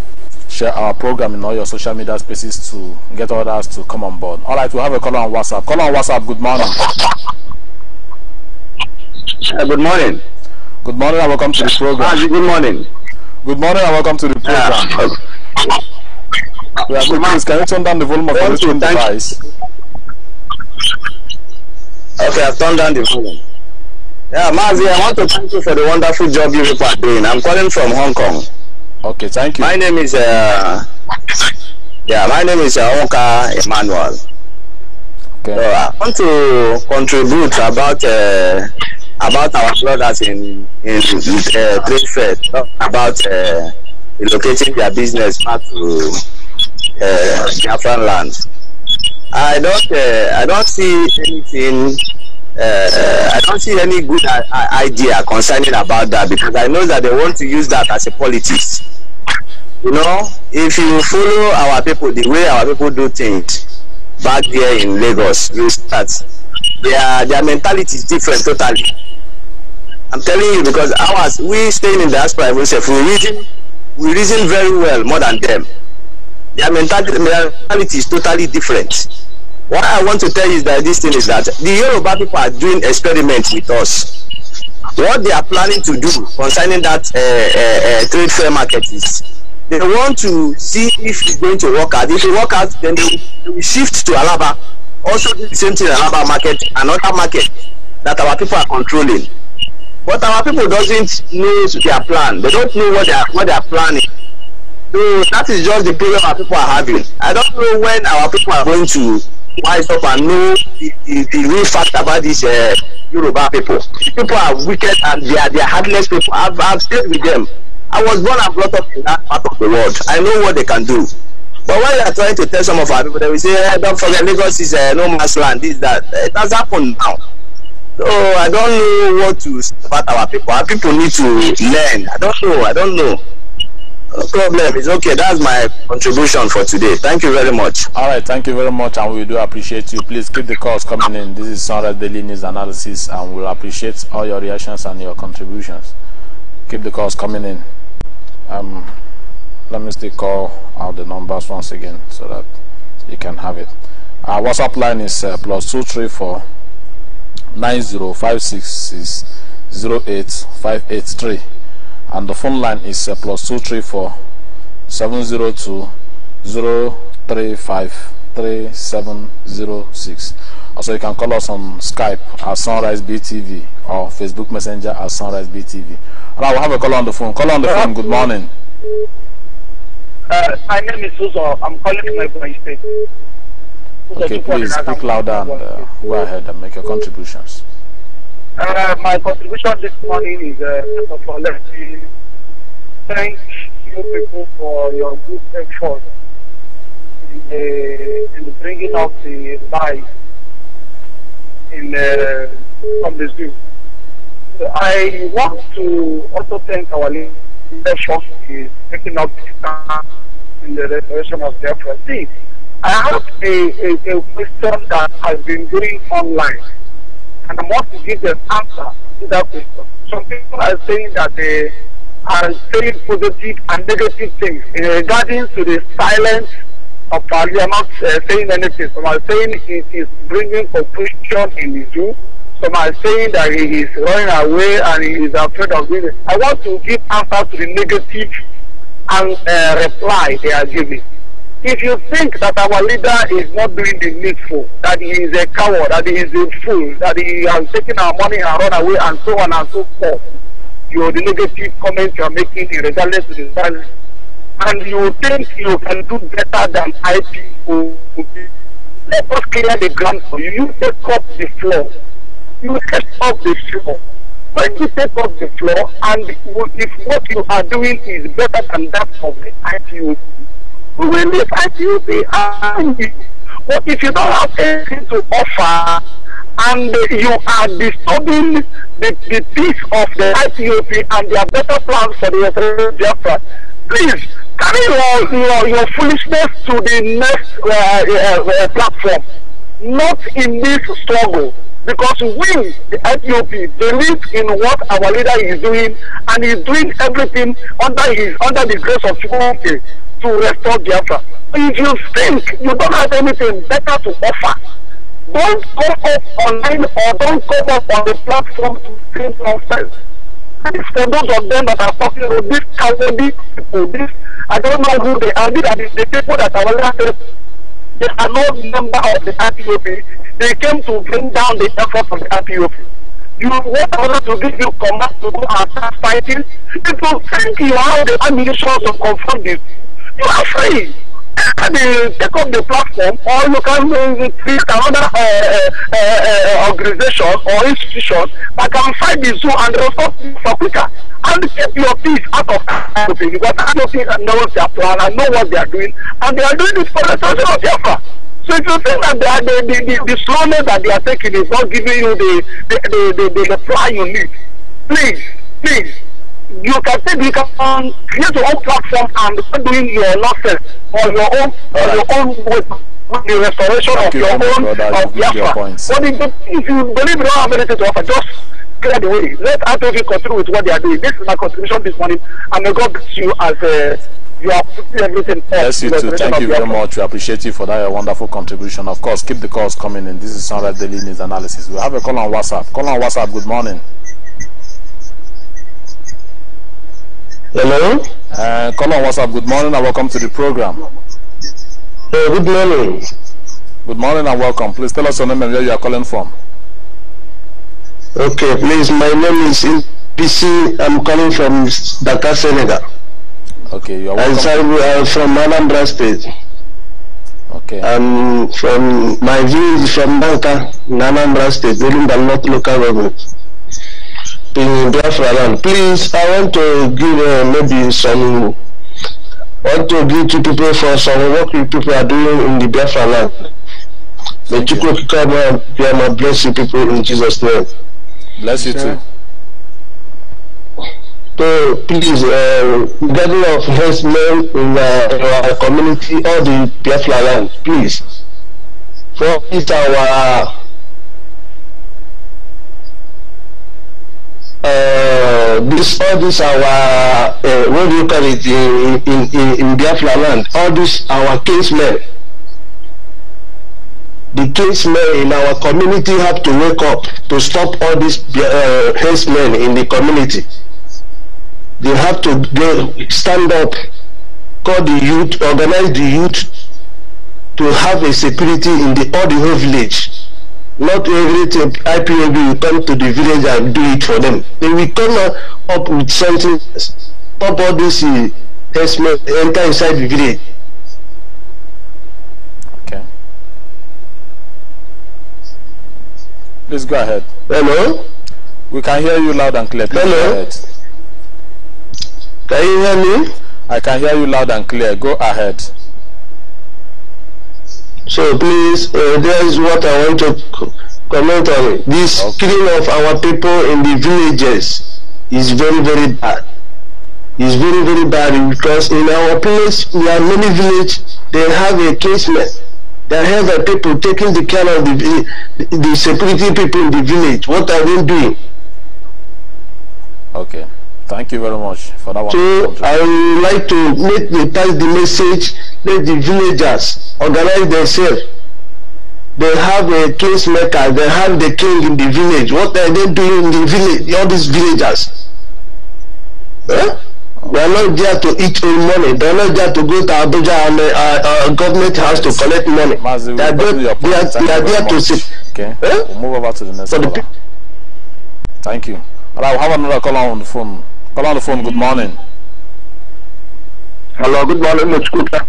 Speaker 2: share our program in all your social media spaces to get others to come on board. All right, we have a caller on WhatsApp. Caller on WhatsApp, good morning.
Speaker 4: Uh, good morning. Good morning and welcome to the program. Uh, good morning. Good morning and welcome to the ah, program. Uh, we are good morning. Can you turn down the volume of your phone device? Okay, I've turned down the volume. Yeah, Mazi, I want to thank you for the wonderful job you people are doing. I'm calling from Hong Kong. Okay, thank you. My name is uh, yeah, my name is uh, Oka Emmanuel. Okay. So I want to contribute about uh, about our brothers in in uh, trade fair about uh, relocating their business back to uh, Biafran land. I don't uh, I don't see anything uh, I don't see any good idea concerning about that because I know that they want to use that as a politics. You know, if you follow our people, the way our people do things back there in Lagos, you start. Their, their mentality is different totally. I'm telling you because ours, we staying in diaspora, we say, we reason, we reason very well more than them. Their mentality, mentality is totally different what I want to tell you that this thing is that the Yoruba people are doing experiments with us. What they are planning to do concerning that uh, uh, uh, trade fair market is they want to see if it's going to work out. If it work out, then they will shift to Alaba. Also do the same thing Alaba market, another market that our people are controlling. But our people doesn't know their plan. They don't know what they are, what they are planning. So that is just the problem our people are having. I don't know when our people are going to wise up and know the, the, the real fact about these uh, Yoruba people. The people are wicked and they are, they are heartless people. I've, I've stayed with them. I was born and brought up in that part of the world. I know what they can do. But when they are trying to tell some of our people, they will say, hey, eh, don't forget, Lagos is uh, no man's land, this, that. It has happened now. So I don't know what to say about our people. Our people need to learn. I don't know. I don't know. No problem. It's okay. That's my contribution for today. Thank you very much.
Speaker 2: All right. Thank you very much, and we do appreciate you. Please keep the calls coming in. This is Sonra Daily News Analysis, and we'll appreciate all your reactions and your contributions. Keep the calls coming in. Um, let me still call out the numbers once again so that you can have it. Our WhatsApp line is uh, plus two three four nine zero five six six zero eight five eight three and the phone line is uh, plus 234 702 035 3706. Also, you can call us on Skype at Sunrise BTV or Facebook Messenger at Sunrise BTV. And I will have a call on the phone. Call on the uh, phone. Good morning.
Speaker 4: Uh, my name is Suso. I'm calling from my State.
Speaker 2: Okay, please speak louder and uh, go ahead and make your contributions.
Speaker 4: Uh, my contribution this morning is uh, first of all, let me thank you people for your good effort in, uh, in bringing up the life in uh, from the zoo. So I want to also thank our leadership for taking up in the restoration of the property. I have a, a, a question that has been going online. and I want to give an answer to that question. Some people are saying that they are saying positive and negative things in regarding to the silence of Ali. I'm not uh, saying anything. Some are saying he is bringing confusion in the zoo. Some are saying that he is running away and he is afraid of doing it. I want to give answer to the negative and uh, reply they are giving if you think that our leader is not doing the needful, that he is a coward, that he is a fool, that he has taken our money and run away and so on and so forth, your the negative comments you are making regardless to the value, and you think you can do better than IPO, let us clear the ground for you. You take up the floor. You take up the floor. When you take up the floor, and if what you are doing is better than that of the IPO, we will leave at you behind. But if you don't have anything to offer and you are disturbing the, the peace of the IPOP and their better plans for the Eritrean Biafra, please carry your, your, your foolishness to the next uh, uh, uh, uh, platform, not in this struggle. Because we, the IPOP, believe in what our leader is doing and he's doing everything under his under the grace of humanity to restore Biafra. If you think you don't have anything better to offer, don't come up online or don't come up on the platform to say nonsense. And it's for those of them that are talking about this cowardly people, this, I don't know who they are, these are the, the people that are elected. They are not member of the RPOP. They came to bring down the effort from the RPOP. You want us to give you command to go and start fighting? It will thank you how the ammunition to confront this you are free. And they take up the platform, or you can uh, create uh, another uh, uh, organization or institution that can fight the zoo and resolve restore for quicker And keep your peace out of Africa because Africa know their plan and know what they are doing. And they are doing this for the sake of Biafra. So if you think that are, the, the, the, the slowness that they are taking is not giving you the, the, the, the, the, the plan you need, please, please you can say you can create your own platform and start doing your nonsense on your own on right. your own with, the restoration Thank of you your own brother, of Biafra. But if, you believe you don't have anything to offer, just clear the way. Let RTOV continue with what they are doing. This is my contribution this morning, and may God bless you as a. Uh, you are putting everything. Yes, you too. Thank you very much.
Speaker 2: We appreciate you for that your wonderful contribution. Of course, keep the calls coming in. This is Sunrise Daily News Analysis. We have a call on WhatsApp. Call on WhatsApp. Good morning. Hello? Uh, What's up? Good morning and welcome to the program.
Speaker 4: Hey, uh, good morning. Good morning and welcome. Please tell us your name and where you are calling from. Okay, please. My name is PC. I'm calling from Dakar, Senegal.
Speaker 2: Okay, you are welcome.
Speaker 4: I'm from Anambra State. Okay. I'm from, my view is from Dakar, Anambra State, within the North local government. in Biafra land. Please, I want to give uh, maybe some, want to give to people for some work you people are doing in the Biafra land. May you come and be my blessing people in Jesus' name. Bless you too. So please, uh, gathering of men in uh, our community, all the Biafra land, please. For it's our uh, this all this our uh, what do you call it in in in, in Biafra land all this our kinsmen the kinsmen in our community have to wake up to stop all these uh, henchmen in the community they have to they stand up call the youth organize the youth to have a security in the all the whole village Not everything IPOB will come to the village and do it for them. They will come up with something, stop all this uh, enter inside the village. Okay. Please
Speaker 2: go ahead. Hello? We can hear you loud and clear. Please Hello? Can you hear me? I can hear you loud and clear. Go ahead.
Speaker 4: So please, uh, there is what I want to comment on This okay. killing of our people in the villages is very, very bad. It's very, very bad because in our place, we are many villages. they have a casement. They have a people taking the care of the, the, the security people in the village. What are they doing?
Speaker 2: Okay. Thank you very much for that one.
Speaker 4: So I would like to make the, pass the message let the villagers organize themselves they have a case maker they have the king in the village what are they doing in the village all these villagers eh? we are not there to eat own money they are not there to go to abuja and uh, uh, government house to collect money Mazi, they are there, they are, they are there to see.
Speaker 2: okay eh? we'll move over to the next one. thank you all right we'll have another call on the phone Call on the phone good morning Hello, good morning, Mr. Kuka.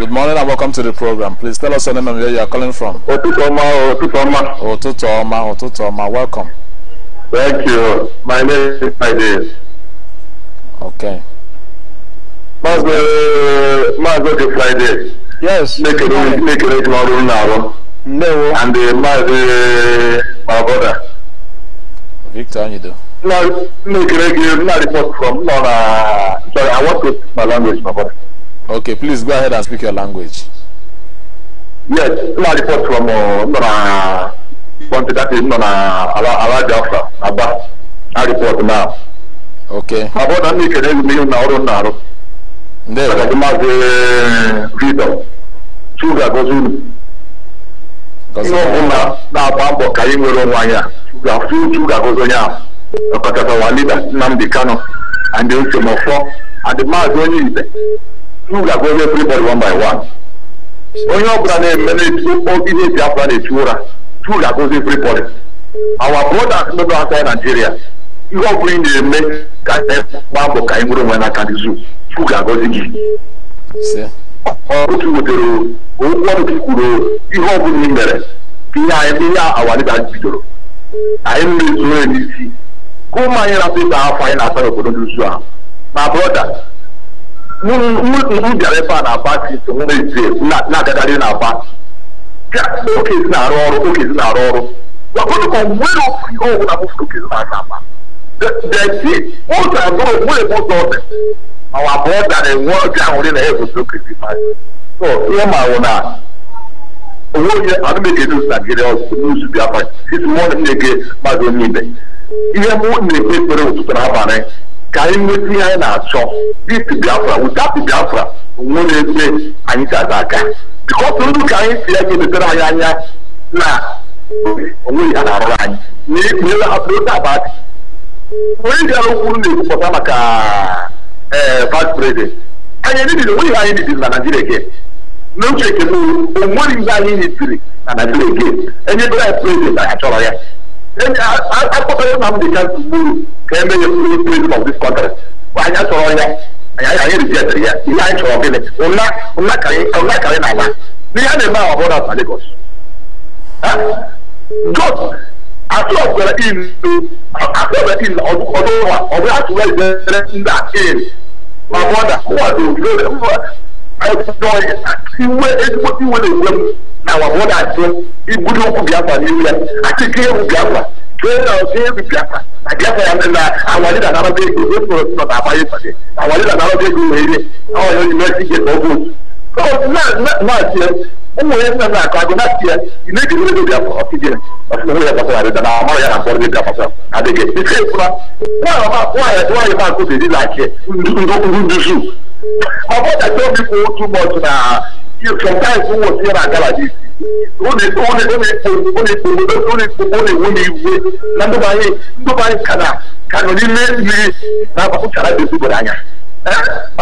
Speaker 2: Good morning and welcome to the program. Please tell us your name and where you are calling from. Otutoma, Otutoma. Otutoma,
Speaker 4: Otutoma, welcome. Thank you. My name is Friday. Okay. Maazị eh, Friday. Yes. Make Nekere make a na now. No. And the eh, Maazị eh,
Speaker 2: my brother. Victor Anyido. from Sorry, I want to speak my language, my brother. Okay, please go ahead and speak your language.
Speaker 4: Yes, na report from uh, that is Nora Ala Biafra, Aba. I report now. Okay. na There. I'm going to read Sugar goes in. Ihe na-agba mbọ ka anyị nwere onwe anyị a, sugar goes onye ọkọtara ọwa leader Nnamdi Kanu and then Somofo and Maazị onye Ibe who ga go body one by one onye ọbụla na-eme na-etu ihe Biafra na-etu ụra two ga go everybody our brothers nọ Nigeria ihe ọbụla ị na-eme ka anyị e gbaa ka anyị nwere onwe n'aka zoo two ga gị otu wetere ọnụ kwuru ihe ọbụla ị mere ihe anyị ihe awalida bidoro anyị na n'isi ka ụmụ anyị na-atụ afọ anyị na-asa n'obodo dị uzu ahụ ma brọda bịara ebe a na aba na na aba okezi na-arụ ọrụ okezi na-arụ ọrụ gwakọdụ ka ofu ihe ọbụla bụfuru okezi na aba deti abụrụ ebe ụzọ ọdị ma wa na-enwe oge ahụrị na ya egosi okezi ma ihe ma na onwe onye anụmegedozi na gịrị ọzọ n'uzu bịa onye ihe m na-ekpe ekpere ụtụtụ n'abalị ka anyị nweta ihe anyị na-achọ bit biafra without biafra nwe na-ekpe anyị chaza aka bikọs ndụ ka anyị si ya ga-emepere anyị anya na onweghị ya na-arụrụ anyị na ikpe apụta abadị onye ji arụ okwu na-ekwupụta maka ee eh, vice president anyị ebibiri onweghị anyị bibiri na naijiria gị n'oche ekele onweghị ihe anyị nyitiri na naijiria gị enyebere anyị prezident anyị achọrọ ya akpọtara na ndị ka gburu ka eme ya bụrụ president of this country anyị achọrọ ya anyị anyị rijetịrị ya ihe anyị chọrọ gịnị ụna ụna karị na ala n'ihe a na-eme ahụ ọbụla na Lagos God atụọbara inu atụọbara inu ọdụ ụwa ọ bụ atụwa ijere ndị a ma bọda ụwa dị ɛdɔyɛ iwe edigbo iwe na ewem na wabɔ na ase ibuli okwu biafra n'ewia ati ke ewu biafra ke na ke ewu biafra na biafra ya na awari na anara ego ebe nọ nọ na agba ịta gị awari na anara ego wee rie awari onye na-esi gị na ọgụ otu na na na ase ụmụ ya nna na akụ agụ na ase ị na-eji mmiri biafra ọtị gị ọtụtụ mmiri gbasara adịda na amara ya na mkpọrọ gị gbasara adịghị ike ịfụra nwaanyị nwaanyị ma akụ dị dị na ake ndị ndị ndị zu my brother tell me for too much na you sometimes who was here na gala this only only only only only only only only iwe na ndị bụ anyị ndị bụ anyị ka na ka nọ n'ime mmiri na agbapụchara dị ezigbo anya ma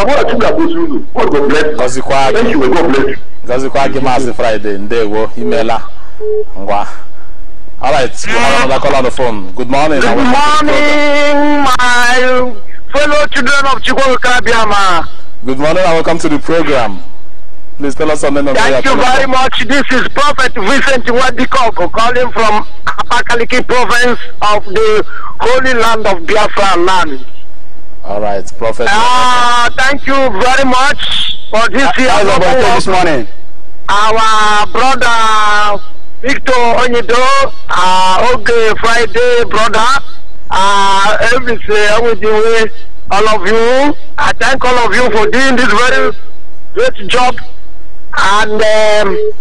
Speaker 4: eh? bụrụ chukwu ga-agbozi unu god bless gọzikwa gị
Speaker 2: gọzikwa gị maazị Friday ndewo imela ngwa All right, we have another call on the phone. Good morning. Good
Speaker 4: morning, my fellow children of Chikwaka Biama. Good morning and welcome to the program. Please tell us name
Speaker 5: something. Thank you very
Speaker 4: much. This is Prophet Vincent Wadikoko calling from Apakaliki province of the Holy Land of Biafra land. All right, Prophet. Uh, thank you very much for this year. How's birthday this morning? Our brother Victor Onyido, uh, okay, Friday brother, uh, everything, everything all of you. I thank all of you for doing this very great job. And um,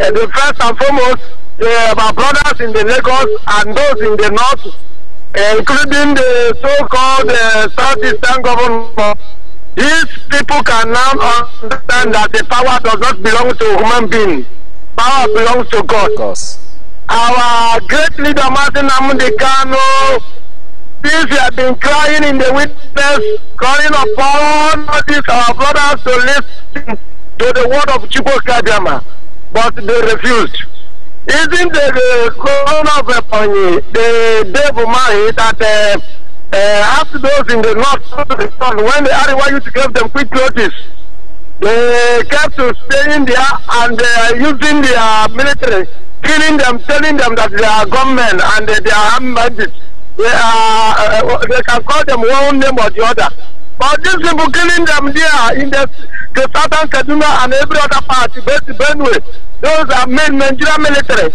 Speaker 4: uh, the first and foremost, uh, my brothers in the Lagos and those in the north, uh, including the so-called uh, southeastern government. These people can now understand that the power does not belong to human beings. Power belongs to God. Our great leader Martin Amundi Kano Since we have been crying in the witness, calling upon these our brothers to listen to the word of Chibo Kadiama, but they refused. Isn't the crown of Epony, the devil mind that uh, uh, after those in the north returned, when the Ariwa used to give them quick notice, they kept to staying there and uh, using their military, killing them, telling them that they are gunmen and uh, they are armed bandits they, are, uh, uh, they can call them one name or the other. But these people killing them there in the, the southern Kaduna and every other part, based Benue, those are main Nigerian military.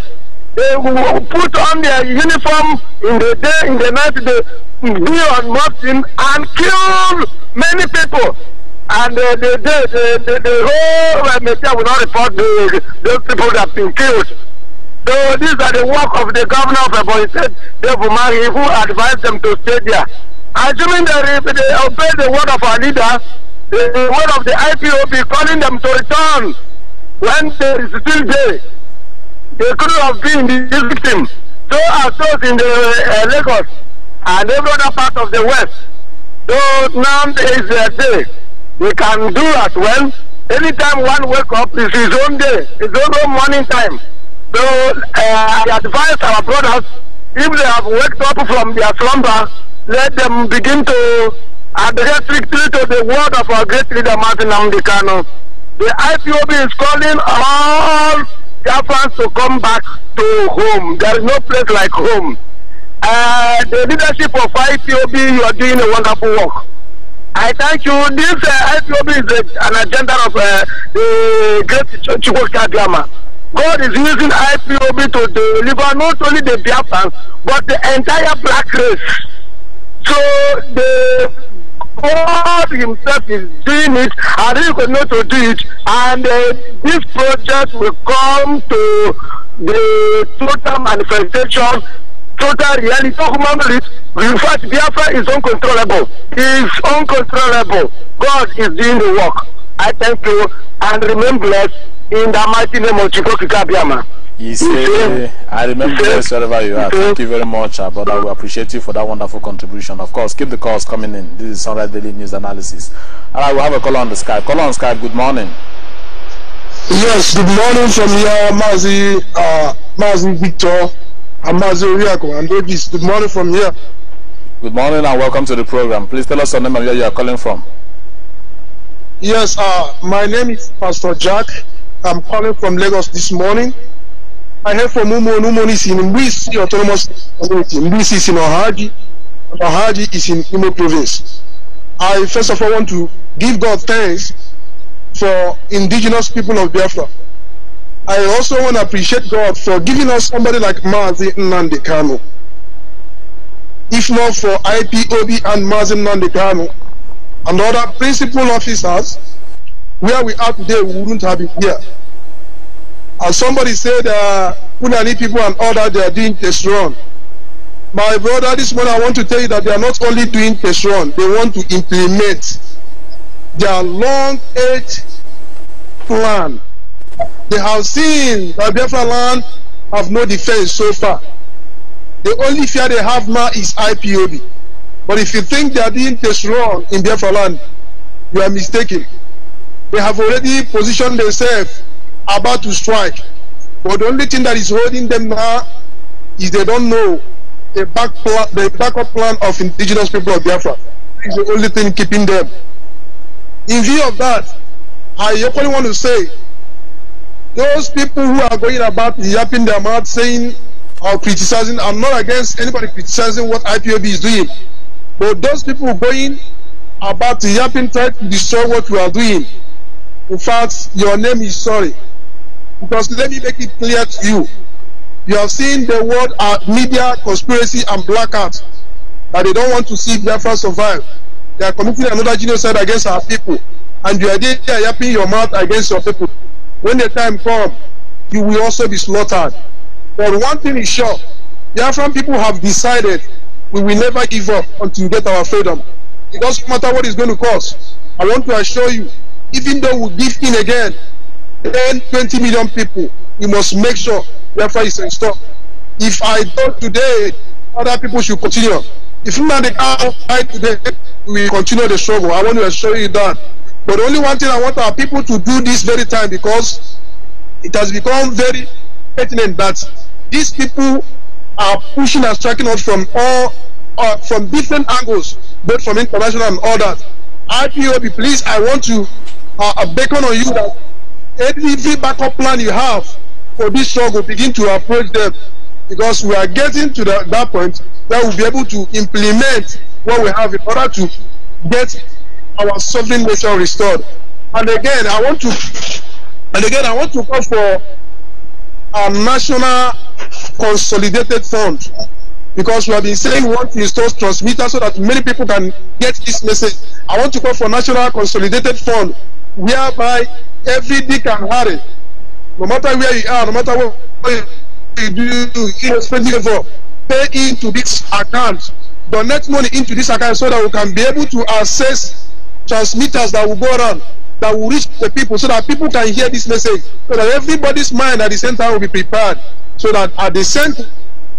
Speaker 4: They will put on their uniform in the day, in the night, they be on mountain and kill many people. And uh, the, the, the, the, the whole uh, media will not report the, those people that have been killed. So these are the work of the governor of Ebonyi State, Dave Umari, who advised them to stay there. Assuming that if they obey the word of our leader, the, word of the IPOB calling them to return when there is still day, they could have been the victim. So are those in the uh, Lagos and every other part of the West. So now is their day. We can do as well. Anytime one wake up, it's his own day, his own morning time. So uh, I advise our brothers, if they have waked up from their slumber, let them begin to adhere strictly to the word of our great leader, Martin Amdekano. The IPOB is calling all Jafans to come back to home. There is no place like home. Uh, the leadership of IPOB, you are doing a wonderful work. I thank you. This uh, IPOB is a, an agenda of uh, the great Chukwuka Ch Ch Ch Gama. God is using IPOB to deliver not only the Biafrans but the entire black race. So the God Himself is doing it, and He will not do it. And uh, this project will come to the total manifestation, total reality, human reality. In fact, Biafra is uncontrollable. It's uncontrollable. God is doing the work. I thank you and remain blessed. in the mighty name of Chikoki Kabiama.
Speaker 2: He said, I remember wherever you are. Thank you very much, uh, brother. We appreciate you for that wonderful contribution. Of course, keep the calls coming in. This is Sunrise Daily News Analysis. All right, we'll have a call on the Skype. Call on Skype. Good morning. Yes, good morning from here, Mazi, uh, Mazi Victor and Mazi Oriako and Davis. Good morning from here. Good morning and welcome to the program. Please tell us your name and where you are
Speaker 5: calling from. Yes, uh, my name is Pastor Jack I'm calling from Lagos this morning. I heard from Umon. Umon is in Mbisi Autonomous Community. Mbisi is in Ohaji. Ohaji is in Imo Province. I first of all want to give God thanks for indigenous people of Biafra. I also want to appreciate God for giving us somebody like Mazi Nandekano. If not for IPOB and Mazi Nandekano and other principal officers, where we are today, we wouldn't have been here. As somebody said, uh, Unani people and other they are doing test run." My brother, this morning I want to tell you that they are not only doing test run; they want to implement their long age plan. They have seen that Biafra land have no defense so far. The only fear they have now is IPOB. But if you think they are doing test run in Biafra land, you are mistaken. They have already positioned themselves about to strike. But the only thing that is holding them now is they don't know the, back plan, the backup plan of indigenous people of Biafra. It's the only thing keeping them. In view of that, I only want to say those people who are going about yapping their mouth saying or criticizing, I'm not against anybody criticizing what IPOB is doing. But those people going about yapping, try to destroy what we are doing, In fact, your name is sorry. Because let me make it clear to you. You have seen the word uh, media conspiracy and blackout that they don't want to see Biafra survive. They are committing another genocide against our people. And you are there yapping your mouth against your people. When the time comes, you will also be slaughtered. But one thing is sure Biafran people have decided we will never give up until we get our freedom. It doesn't matter what it's going to cost. I want to assure you even though we give in again, 10, 20 million people, we must make sure welfare is restored. If I thought today, other people should continue. If not, they can't today, we continue the struggle. I want to assure you that. But only one thing I want our people to do this very time because it has become very pertinent that these people are pushing and striking us from all uh, from different angles, both from international and all that. IPOB, please, I want to uh, uh beckon on you that any backup plan you have for this struggle begin to approach them because we are getting to the, that point that we'll be able to implement what we have in order to get our sovereign nation restored. And again, I want to and again I want to call for a national consolidated fund because we have been saying we want to install transmitters so that many people can get this message. I want to call for national consolidated fund whereby every day can hurry. No matter where you are, no matter what you do, you irrespective of, pay into this account, donate money into this account so that we can be able to access transmitters that will go around, that will reach the people, so that people can hear this message, so that everybody's mind at the same time will be prepared, so that at the same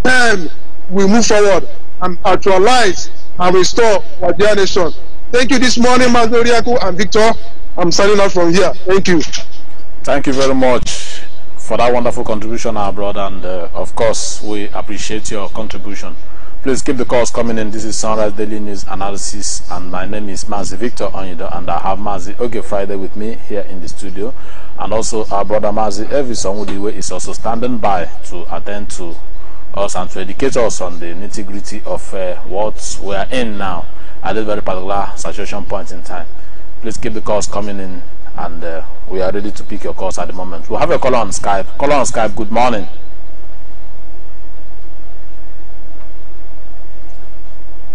Speaker 5: time we move forward and actualize and restore our dear nation. Thank you this morning, Mazoriaku and Victor. I'm signing out from here. Thank you. Thank you very
Speaker 2: much for that wonderful contribution, our brother. And uh, of course, we appreciate your contribution. Please keep the calls coming in. This is Sunrise Daily News Analysis, and my name is Mazi Victor Onyido, and I have Mazi Oge Friday with me here in the studio. And also, our brother Mazi Evison Udiwe is also standing by to attend to us and to educate us on the nitty gritty of uh, what we are in now at this very particular situation point in time please keep the calls coming in and uh, we are ready to pick your calls at the moment we'll have a caller on skype caller on skype good morning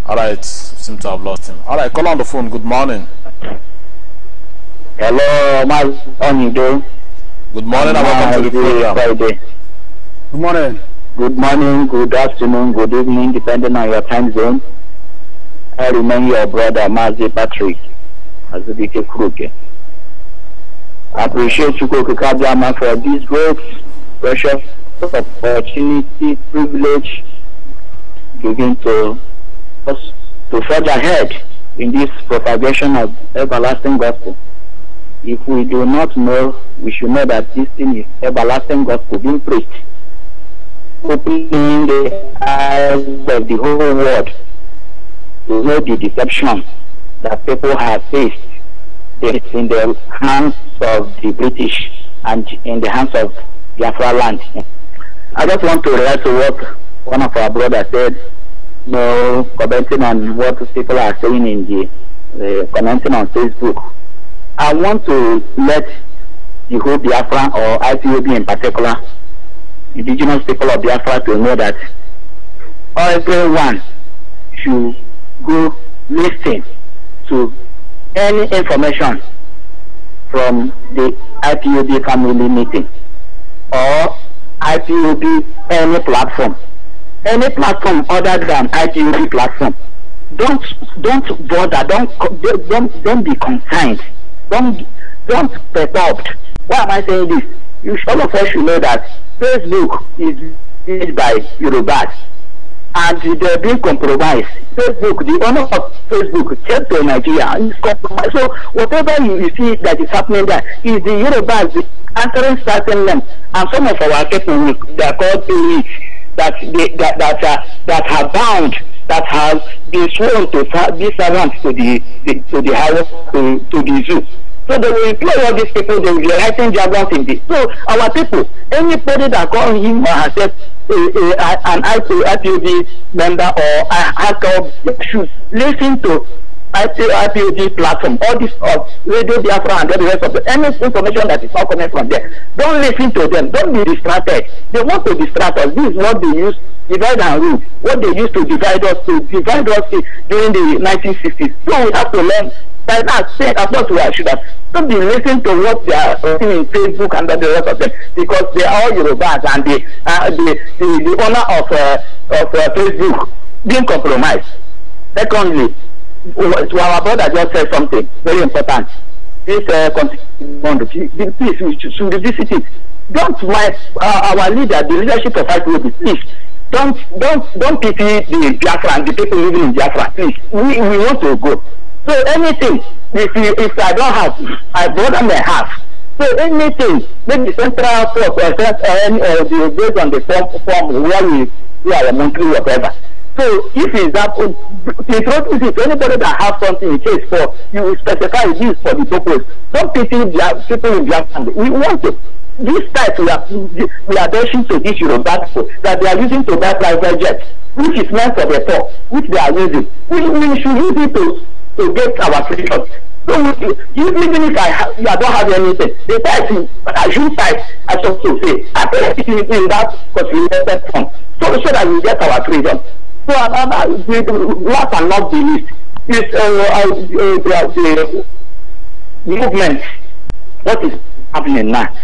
Speaker 2: all right seem to have lost him all right caller on the phone good morning hello my doing? good
Speaker 4: morning and welcome to the program Friday. good morning good morning good afternoon good evening depending on your time zone i remain your brother mazi patrick as DK Kruger. I appreciate you, Koko Kabiyama for this great, precious opportunity, privilege given to us to forge ahead in this propagation of everlasting gospel. If we do not know, we should know that this thing is everlasting gospel being preached, opening the eyes of the whole world to know the deception that people have faced it's in the hands of the British and in the hands of Biafra land. I just want to relate to what one of our brothers said, you know, commenting on what people are saying in the, uh, commenting on Facebook. I want to let the whole Biafra or IPOB in particular, indigenous people of Biafra to know that everyone should go listen to any information from the IPOB family meeting or IPOB any platform, any platform other than IPOB platform. Don't don't bother. Don't don't don't be concerned. Don't don't perturbed. Why am I saying this? You all of us should know that Facebook is used by Yorubas and they're being compromised. Facebook, the owner of Facebook, came to Nigeria. It's compromised. So whatever you, you see that is happening there is the Yorubas answering certain names, and some of our people they are called elites that they, that that uh, that are bound that have been sworn to be servants to the, the to the house to, to the zoo. So they will employ all these people, they will be writing jargon in this. So our people, anybody that calls him or accept a, a, a, an IPOD member or a hacker should listen to IPOD platform, all this of Radio Biafra and all the rest of the any information that is not coming from there. Don't listen to them. Don't be distracted. They want to distract us. This is what they use divide and rule. What they used to divide us to divide us during the 1960s. So we have to learn by now saying that's not should have. Don't be listening to what they are saying in Facebook and the rest of them because they are all Yorubas and the uh, the, the the owner of uh, of uh, Facebook being compromised. Secondly, to our brother just said something very important. This uh, constitution, please, we should revisit it. Don't my uh, our leader, the leadership of IPOB, please don't don't don't pity the Biafra and the people living in Biafra. Please, we we want to go. So anything, if you, if I don't have, I bother may have. So anything, maybe central court or uh, based on the form, form where we, we are a monthly whatever. So if is that, the truth is if anybody that has something in case for, you specify this for the purpose. Some people, people in Japan, we want it this type we are we are dashing to this Yoruba people that they are using to buy private jets, which is meant for the poor, which they are using. We, we should use it to to get our freedom. So you, you, even if I ha- I don't have anything, the person as you type, I talk to say, I put it in, in that consolidated form, so so that we get our freedom. So another, the, last and not the least, is uh, uh, uh, the, the movement. What is happening now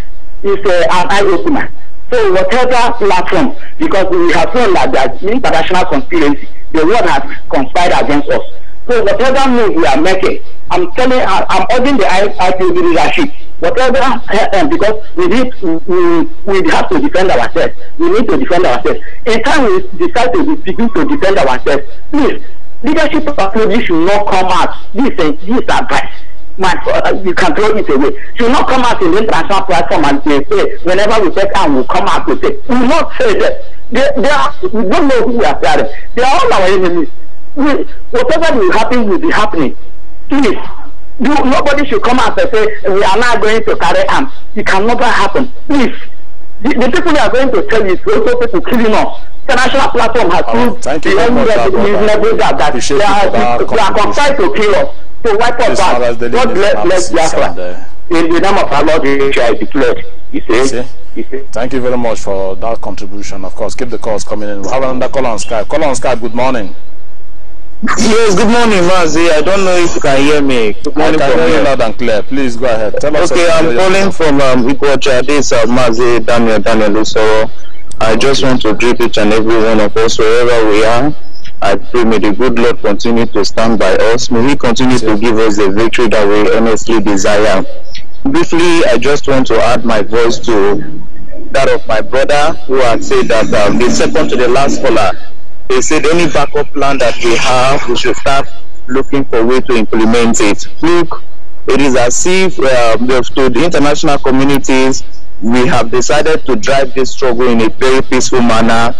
Speaker 4: is uh, an eye opener. So whatever platform, because we have seen that there's international conspiracy, the world has conspired against us. So whatever move we are making, I'm telling, I, I'm urging the IPOB leadership, whatever, uh, because we need, we, we have to defend ourselves. We need to defend ourselves. In time we decide to begin to defend ourselves, please, leadership approach should not come out. This is this advice. My, uh, you can throw it away. Should not come out in the international platform and say, hey, whenever we take time, we'll come out to say. We will not say that. They, they are, we don't know who we are fighting. They are all our enemies whatever will happen will be happening. Please, you, nobody should come out and say, we are not going to carry arms. It can never happen. Please, the, the people you are going to tell you is also people killing us. The national platform has oh, proved the only reasonable that, that they are, they are conspired to kill us, to wipe us out. God bless Biafra. In the name of our Lord, we shall be declared. You see?
Speaker 2: You see? Thank you very much for that contribution. Of course, keep the calls coming in. We have another call on Skype. Call on Skype. Good morning. Yes, good morning, Mazi. I don't know if you can hear me. Good morning, I can hear you loud and clear. Please go ahead. Tell us okay, I'm calling
Speaker 4: from um, Iguacha. This is uh, Mazi Daniel Daniel Lusoro. I just want to greet each and every one of us wherever we are. I pray may the good Lord continue to stand by us. May He continue to give us the victory that we honestly desire. Briefly, I just want to add my voice to that of my brother who had said that um, the second to the last caller they said any backup plan that we have, we should start looking for a way to implement it. Look, it is as if um, to the international communities, we have decided to drive this struggle in a very peaceful manner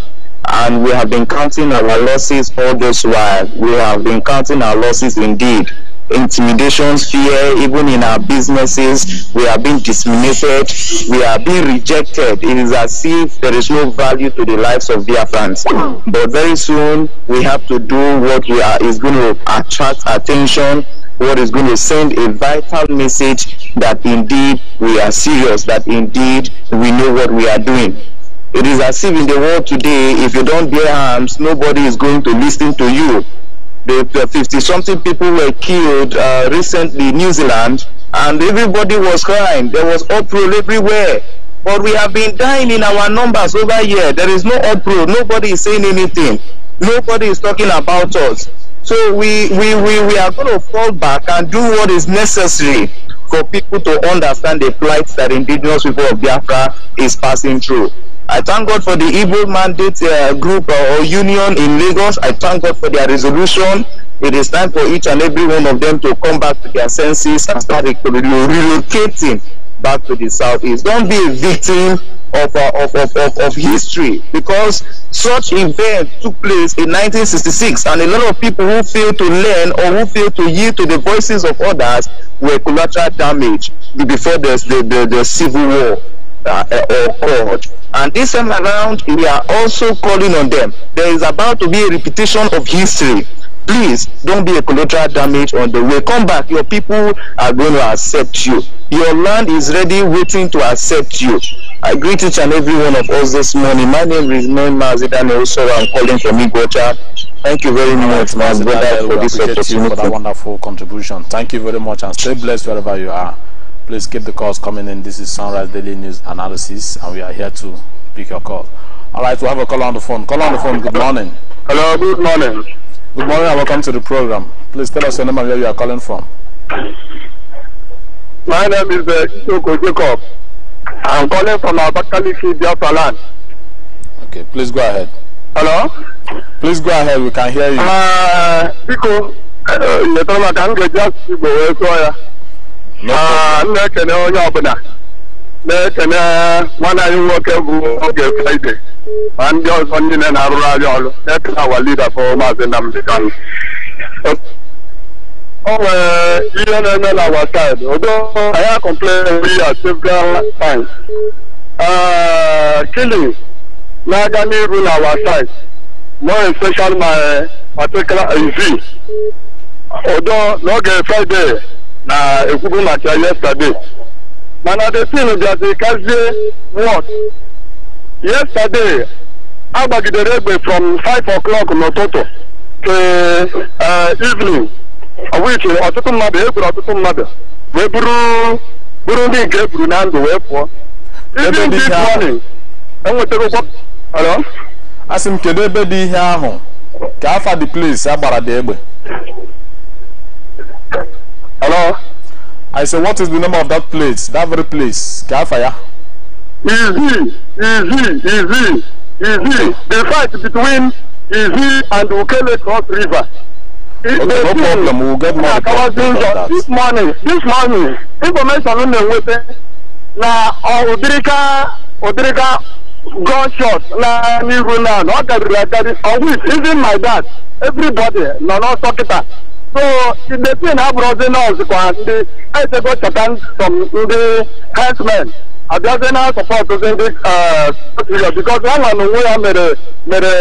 Speaker 4: and we have been counting our losses all this while. We have been counting our losses indeed intimidations, fear, even in our businesses. We are being discriminated. We are being rejected. It is as if there is no value to the lives of friends. But very soon, we have to do what we are is going to attract attention what is going to send a vital message that indeed we are serious, that indeed we know what we are doing. It is as if in the world today, if you don't bear arms, nobody is going to listen to you. the 50 something people were killed uh, recently in New Zealand, and everybody was crying. There was uproar everywhere. But we have been dying in our numbers over here. There is no uproar. Nobody is saying anything. Nobody is talking about us. So we, we, we, we are going to fall back and do what is necessary for people to understand the plight that indigenous people of Biafra is passing through. I thank God for the Igbo Mandate uh, Group uh, or Union in Lagos. I thank God for their resolution. It is time for each and every one of them to come back to their senses and start relocating back to the southeast. Don't be a victim of, uh, of, of, of, of history because such event took place in 1966 and a lot of people who failed to learn or who failed to yield to the voices of others were collateral damage before the, the, the, the civil war uh, uh or God. And this time around, we are also calling on them. There is about to be a repetition of history. Please don't be a collateral damage on the way. Come back. Your people are going to accept you. Your land is ready, waiting to accept you. I greet each and every one of us this morning. My name is Noem Mazidane Osoro. I'm calling from Igota. Thank you very much, my brother, for this opportunity. For that
Speaker 2: wonderful contribution. Thank you very much and stay blessed wherever you are. Please keep the calls coming in. This is Sunrise Daily News Analysis, and we are here to pick your call. All right, we have a call on the phone. Call on the phone. Good morning. Hello. Good morning. Good morning, and welcome to the program. Please tell us your name and where you are calling from.
Speaker 4: My name is uh, Isoko Jacob. I'm calling from Abakaliki, Biafra land. Okay, please go ahead. Hello? Please go ahead, we can hear you. Uh, because you're talking about Anglo Jazz, Igbo, yeah. na-ekene onye ọbụla na-ekene nwanne anyị nwoke bụ oge fraịde ma ndị ọzọ niile na-arụrụ anyị ọrụ na-ekene awa lida bụ maazị Nnamdi Kanu o
Speaker 5: nwere
Speaker 4: ihe na-eme na awa saịdị odo anyị akọmplen ya several times ah, Kili na-aga n'iru na awa saịdị more especially my particular odo n'oge fraịde na-ekwubu maka yesterday mana the thing can kazie what yesterday agbagidere egbe from 5 o'clock n'ụtụtụ to eh, evening which ọtụtụ mmadụ egburu ọtụtụ mmadụ wee bụrụ ndị nke eburu na ndụ wee pụọ e
Speaker 2: asị m kedu ebe dị ihe ahụ ka afa the place agbara dị egbe I say, what is the name of that place? That very place? Can I fire?
Speaker 4: Easy, easy, easy, easy. The fight between Easy and Ukele Cross River. It, okay, no problem. We'll get more about that. This morning, this morning, information on the weapon. Now, Odrika, Odrika gunshot Now, na n'ihu na ọ gariri agari. On which even my dad, everybody no nọ n'ọsọ kịta. so chidetin abụrụzi nọọsụ kwa ndị echego chọta sọm ndị herdsmen abịazi na sọpọtụzi ndị sotrio bikos ọnwa na onwe ya mere mere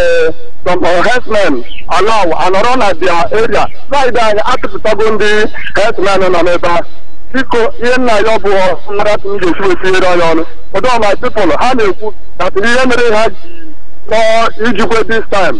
Speaker 4: sọm herdsmen alaw anọrọ na dia eria saịdị anyị atụpụtago ndị herdsmen nọ n'ebe a biko ihe nna ya ọ bụ mmaratụ m ga-esi etinyere ya ọnụ ụdọ my pipụl ha na-ekwu na ihe mere ha ji nọọ uh, ijikwe dis time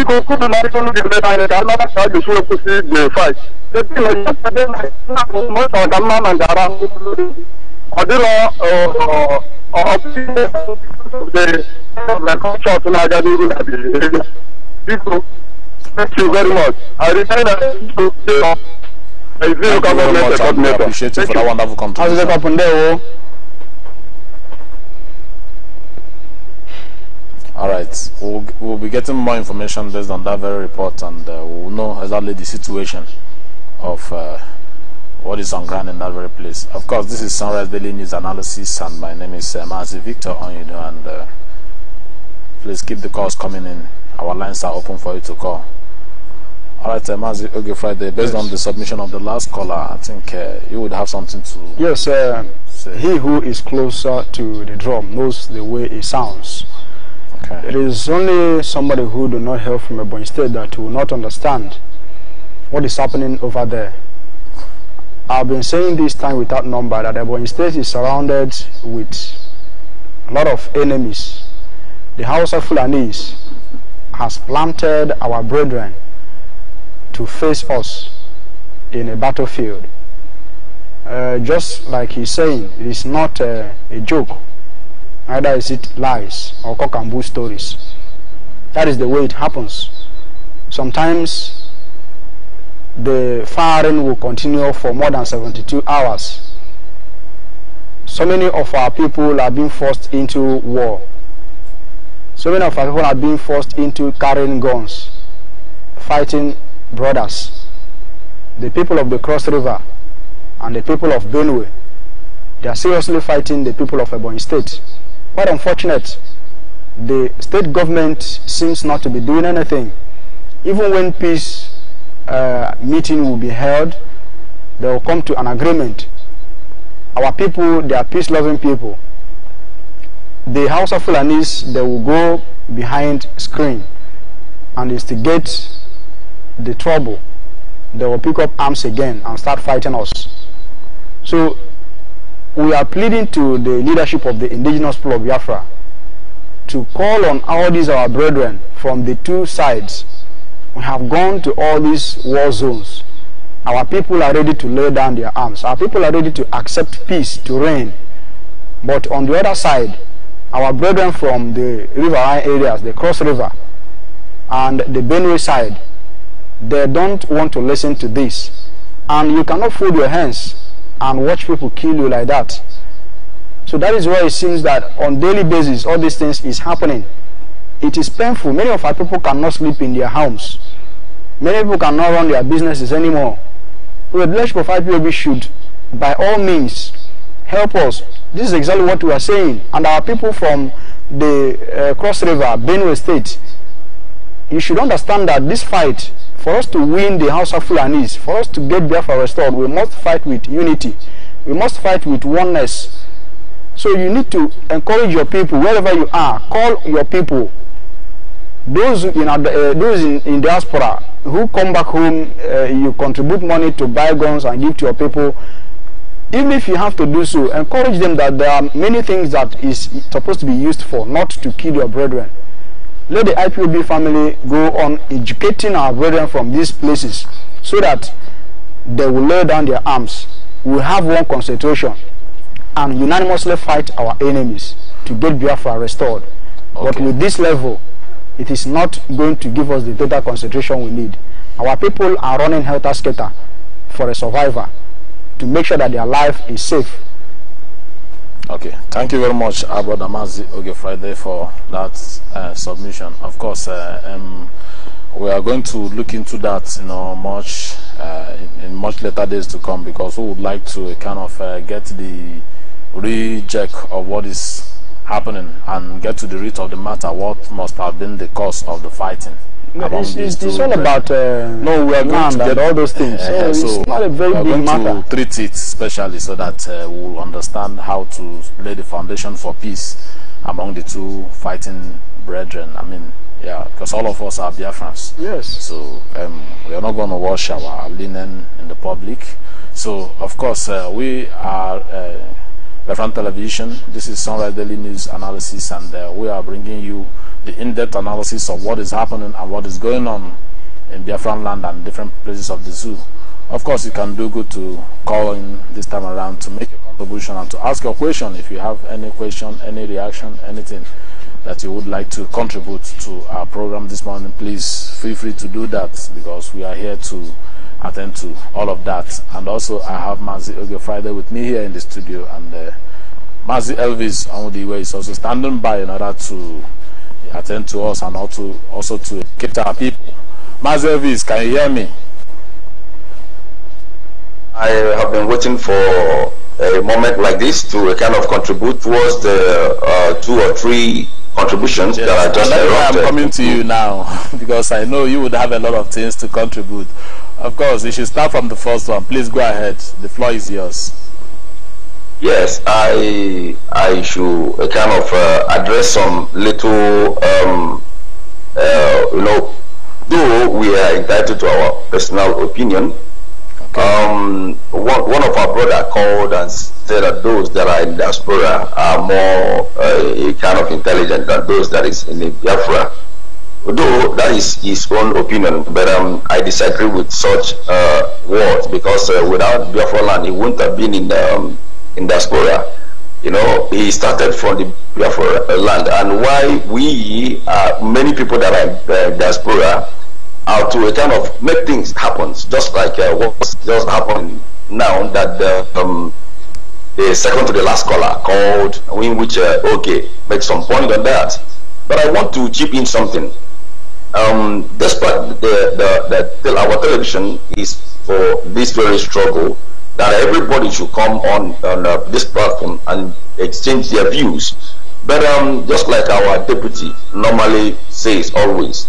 Speaker 4: ikokun bi mari tolu gẹ̀rẹ́ ta yẹn kàrọ́ náà ṣáájú sórí kù sí gbèrè fàì. ṣètì lọ yẹ ṣẹdẹ náà mọ sọ̀rọ̀ dàmú náà nàìjíríà lórí ọ̀dìrọ̀ ọ̀ọ́bí ọ̀dẹ̀ lẹ́kọ̀ọ́sọ̀ tó náà jáde irú nàbì ẹ̀rẹ́ bíkú thank you very much i return that to you. Thank you very much. I appreciate you for that wonderful contribution.
Speaker 2: all right we'll, we'll be getting more information based on that very report and uh, we'll know exactly the situation of uh, what is on ground in that very place of course this is sunrise daily news analysis and my name is uh, Mazi victor onyudo and uh, please keep the calls coming in our lines are open for you to call all right, uh, Mazi Friday, based yes. on the submission of the last caller, I think uh, you would have something to.
Speaker 3: Yes, uh, he who is closer to the drum knows the way it sounds. Okay. It is only somebody who do not hear from Ebony State that will not understand what is happening over there. I've been saying this time without number that Ebony State is surrounded with a lot of enemies. The House of Fulanese has planted our brethren to face us in a battlefield. Uh, just like he's saying, it is not uh, a joke. Either is it lies or cock and bull stories. That is the way it happens. Sometimes the firing will continue for more than 72 hours. So many of our people are being forced into war. So many of our people are being forced into carrying guns, fighting brothers. The people of the Cross River and the people of Benue, they are seriously fighting the people of Ebony State. Quite unfortunate. The state government seems not to be doing anything. Even when peace uh, meeting will be held, they will come to an agreement. Our people, they are peace-loving people. The House of Fulanis, they will go behind screen and instigate the trouble. They will pick up arms again and start fighting us. So we are pleading to the leadership of the indigenous people of Biafra to call on all these our brethren from the two sides. We have gone to all these war zones. Our people are ready to lay down their arms. Our people are ready to accept peace to reign. But on the other side, our brethren from the riverine areas, the Cross River and the Benue side, they don't want to listen to this. And you cannot fold your hands and watch people kill you like that. So that is why it seems that on daily basis, all these things is happening. It is painful. Many of our people cannot sleep in their homes. Many people cannot run their businesses anymore. So the five Prophet POB should, by all means, help us. This is exactly what we are saying. And our people from the uh, Cross River, Benue State, you should understand that this fight for us to win the House of Fulanis, for us to get Biafra restored, we must fight with unity. We must fight with oneness. So you need to encourage your people wherever you are. Call your people, those in uh, those in, in diaspora who come back home. Uh, you contribute money to buy guns and give to your people. Even if you have to do so, encourage them that there are many things that is supposed to be used for, not to kill your brethren let the IPOB family go on educating our brethren from these places so that they will lay down their arms. We have one concentration and unanimously fight our enemies to get Biafra restored. Okay. But with this level, it is not going to give us the total concentration we need. Our people are running helter-skelter for a survivor to make sure that their life is safe
Speaker 2: Okay, thank you very much, Abba Damazi Oge Friday, for that uh, submission. Of course, uh, um, we are going to look into that, you know, much uh, in, in, much later days to come, because we would like to uh, kind of uh, get the recheck of what is happening and get to the root of the matter, what must have been the cause of the fighting it's, it's, it's all about
Speaker 3: uh, no, we are going to get all those things. Uh, so it's not a very big matter.
Speaker 2: To treat it specially so that uh, we will understand how to lay the foundation for peace among the two fighting brethren. I mean, yeah, because all of us are Biafrans. Yes. So um, we are not going to wash our linen in the public. So of course uh, we are uh, we television. This is Sunrise Daily News Analysis, and uh, we are bringing you the in-depth analysis of what is happening and what is going on in Biafran land and different places of the zoo. Of course, you can do good to call in this time around to make a contribution and to ask your question if you have any question, any reaction, anything that you would like to contribute to our program this morning. Please feel free to do that because we are here to attend to all of that. And also, I have Mazi Oge Friday with me here in the studio, and uh, Mazi Elvis way, is also standing by in order to attend to us and also, also to cater our people. Mazi Elvis, can you hear me?
Speaker 4: I have been waiting for a moment like this to kind of contribute towards the uh, two or three contributions yes. that are just I'm coming to you
Speaker 2: now because I know you would have a lot of things to contribute. Of course, you should start from the first one. Please go ahead. The floor is yours.
Speaker 4: Yes, I I should uh, kind of uh, address some little um, uh, you know, though we are entitled to our personal opinion. Okay. Um, one, one of our brother called and said that those that are in diaspora are more uh, kind of intelligent than those that is in Biafra. Although that is his own opinion, but um, I disagree with such uh, words because uh, without Biafra land, he wouldn't have been in um, in diaspora. You know, he started from the Biafra uh, land, and why we uh, many people that are uh, diaspora are to kind of make things happen, just like uh, what's just happened now that the, uh, um, the second to the last caller called, in which, uh, okay, make some point on that. But I want to chip in something um, despite the, the, the, the, our television is for this very struggle, that everybody should come on, on uh, this platform and exchange their views. But um, just like our deputy normally says always,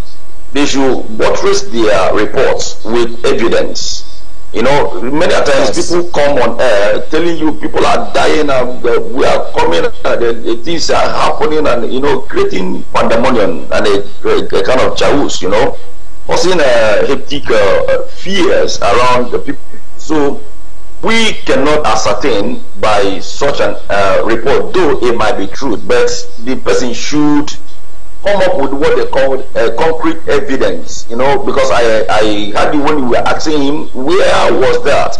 Speaker 4: they should buttress their reports with evidence You know, many times people come on air telling you people are dying and uh, we are coming and uh, things are happening and, you know, creating pandemonium and a, a, a kind of chaos, you know, causing uh, hectic uh, fears around the people. So we cannot ascertain by such an uh, report, though it might be true, but the person should come up with what they called uh, concrete evidence, you know, because I, I had you when you were asking him, where was that?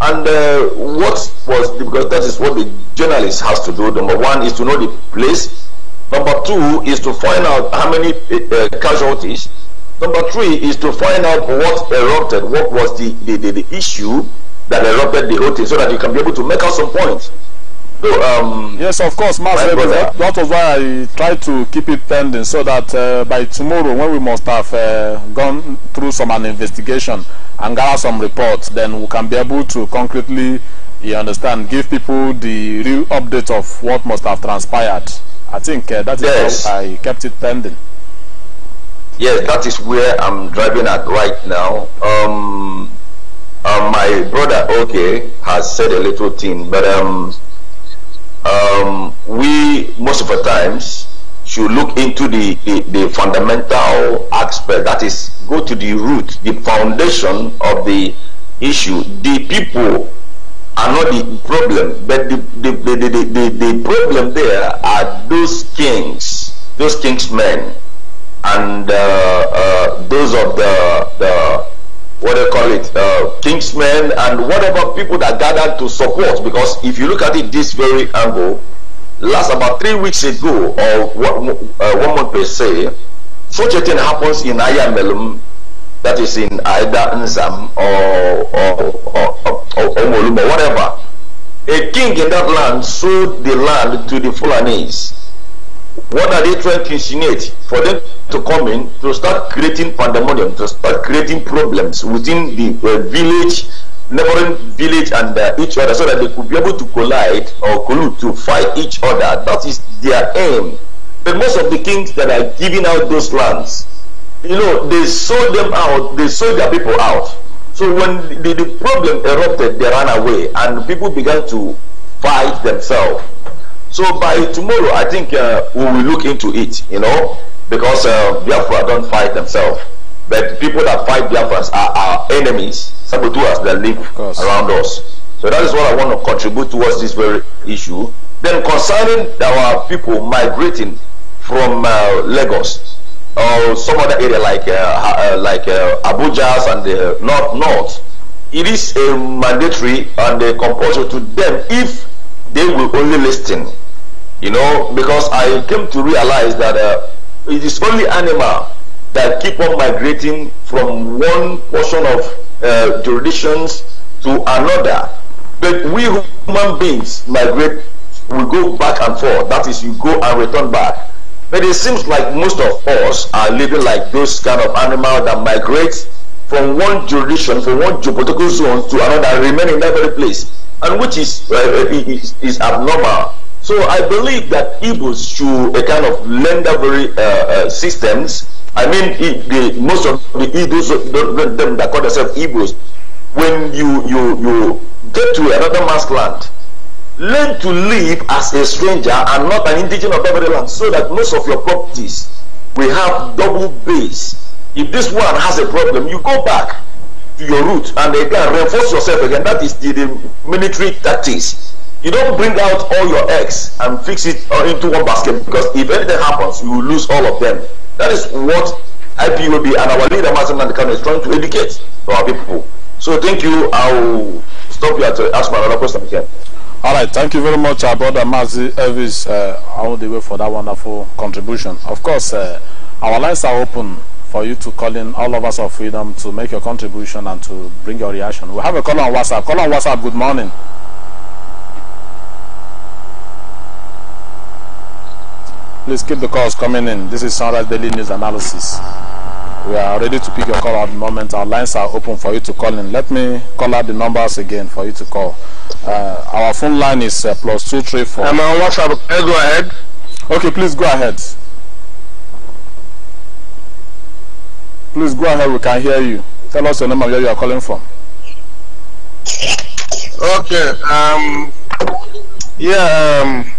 Speaker 4: And uh, what was, the, because that is what the journalist has to do. Number one is to know the place. Number two is to find out how many uh, casualties. Number three is to find out what erupted, what was the, the, the, the issue that erupted the whole thing so that you can be able to make out some points. um,
Speaker 2: yes, of course, That, that was why I tried to keep it pending so that uh, by tomorrow, when we must have uh, gone through some an investigation and gather some reports, then we can be able to concretely, you understand, give people the real update of what must have transpired. I think uh, that is yes. how I kept it pending.
Speaker 4: Yes, that is where I'm driving at right now. Um, uh, my brother, okay, has said a little thing, but um, um, we most of the times should look into the, the, the, fundamental aspect that is go to the root the foundation of the issue the people are not the problem but the, the, the, the, the, the problem there are those kings those kings men and uh, uh, those of the, the what they call it, uh, kingsmen and whatever people that gathered to support. Because if you look at it this very angle, last about three weeks ago, or one, uh, one month per se, such a thing happens in Ayamelum, that is in Aida Nzam or, or, or, or, or Omoluma, whatever. A king in that land sold the land to the Fulanese What are they trying to insinuate? For them to come in, to start creating pandemonium, to start creating problems within the uh, village, neighboring village and uh, each other so that they could be able to collide or collude to fight each other. That is their aim. But most of the kings that are giving out those lands, you know, they sold them out, they sold their people out. So when the, the problem erupted, they ran away and people began to fight themselves. So by tomorrow, I think uh, we will look into it, you know, because uh, Biafra don't fight themselves. But people that fight Biafras are our enemies, us that live around us. So that is what I want to contribute towards this very issue. Then concerning our people migrating from uh, Lagos or some other area like uh, uh, like uh, and the North North, it is a mandatory and a compulsory to them if they will only listen you know, because I came to realize that uh, it is only animal that keep on migrating from one portion of uh, jurisdictions to another. But we human beings migrate, we go back and forth. That is, you go and return back. But it seems like most of us are living like those kind of animal that migrates from one jurisdiction, from one geopolitical zone to another, remain in that very place, and which is, uh, is, is abnormal so I believe that Igbos should a kind of lender very uh, uh, systems. I mean, the, most of the Igbos, them that call themselves Igbos, when you, you, you get to another man's land, learn to live as a stranger and not an indigenous of that land so that most of your properties will have double base. If this one has a problem, you go back to your root and again reinforce yourself again. That is the, the military tactics you don't bring out all your eggs and fix it into one basket because if anything happens, you will lose all of them. That is what be and our leader, Mazin Nandekano, is trying to educate our people. So thank you. I'll stop here to ask my other question again.
Speaker 2: All right, thank you very much, our brother Mazi Elvis uh, all the way for that wonderful contribution. Of course, uh, our lines are open for you to call in all of us of freedom to make your contribution and to bring your reaction. We have a call on WhatsApp. Call on WhatsApp. Good morning. Please keep the calls coming in. This is Sunrise Daily News Analysis. We are ready to pick your call at the moment. Our lines are open for you to call in. Let me call out the numbers again for you to call. Uh, our phone line is uh, plus two three four. I'm on WhatsApp. go ahead. Okay, please go ahead. Please go ahead. We can hear you. Tell us your name and where you are calling from.
Speaker 4: Okay. Um. Yeah. Um.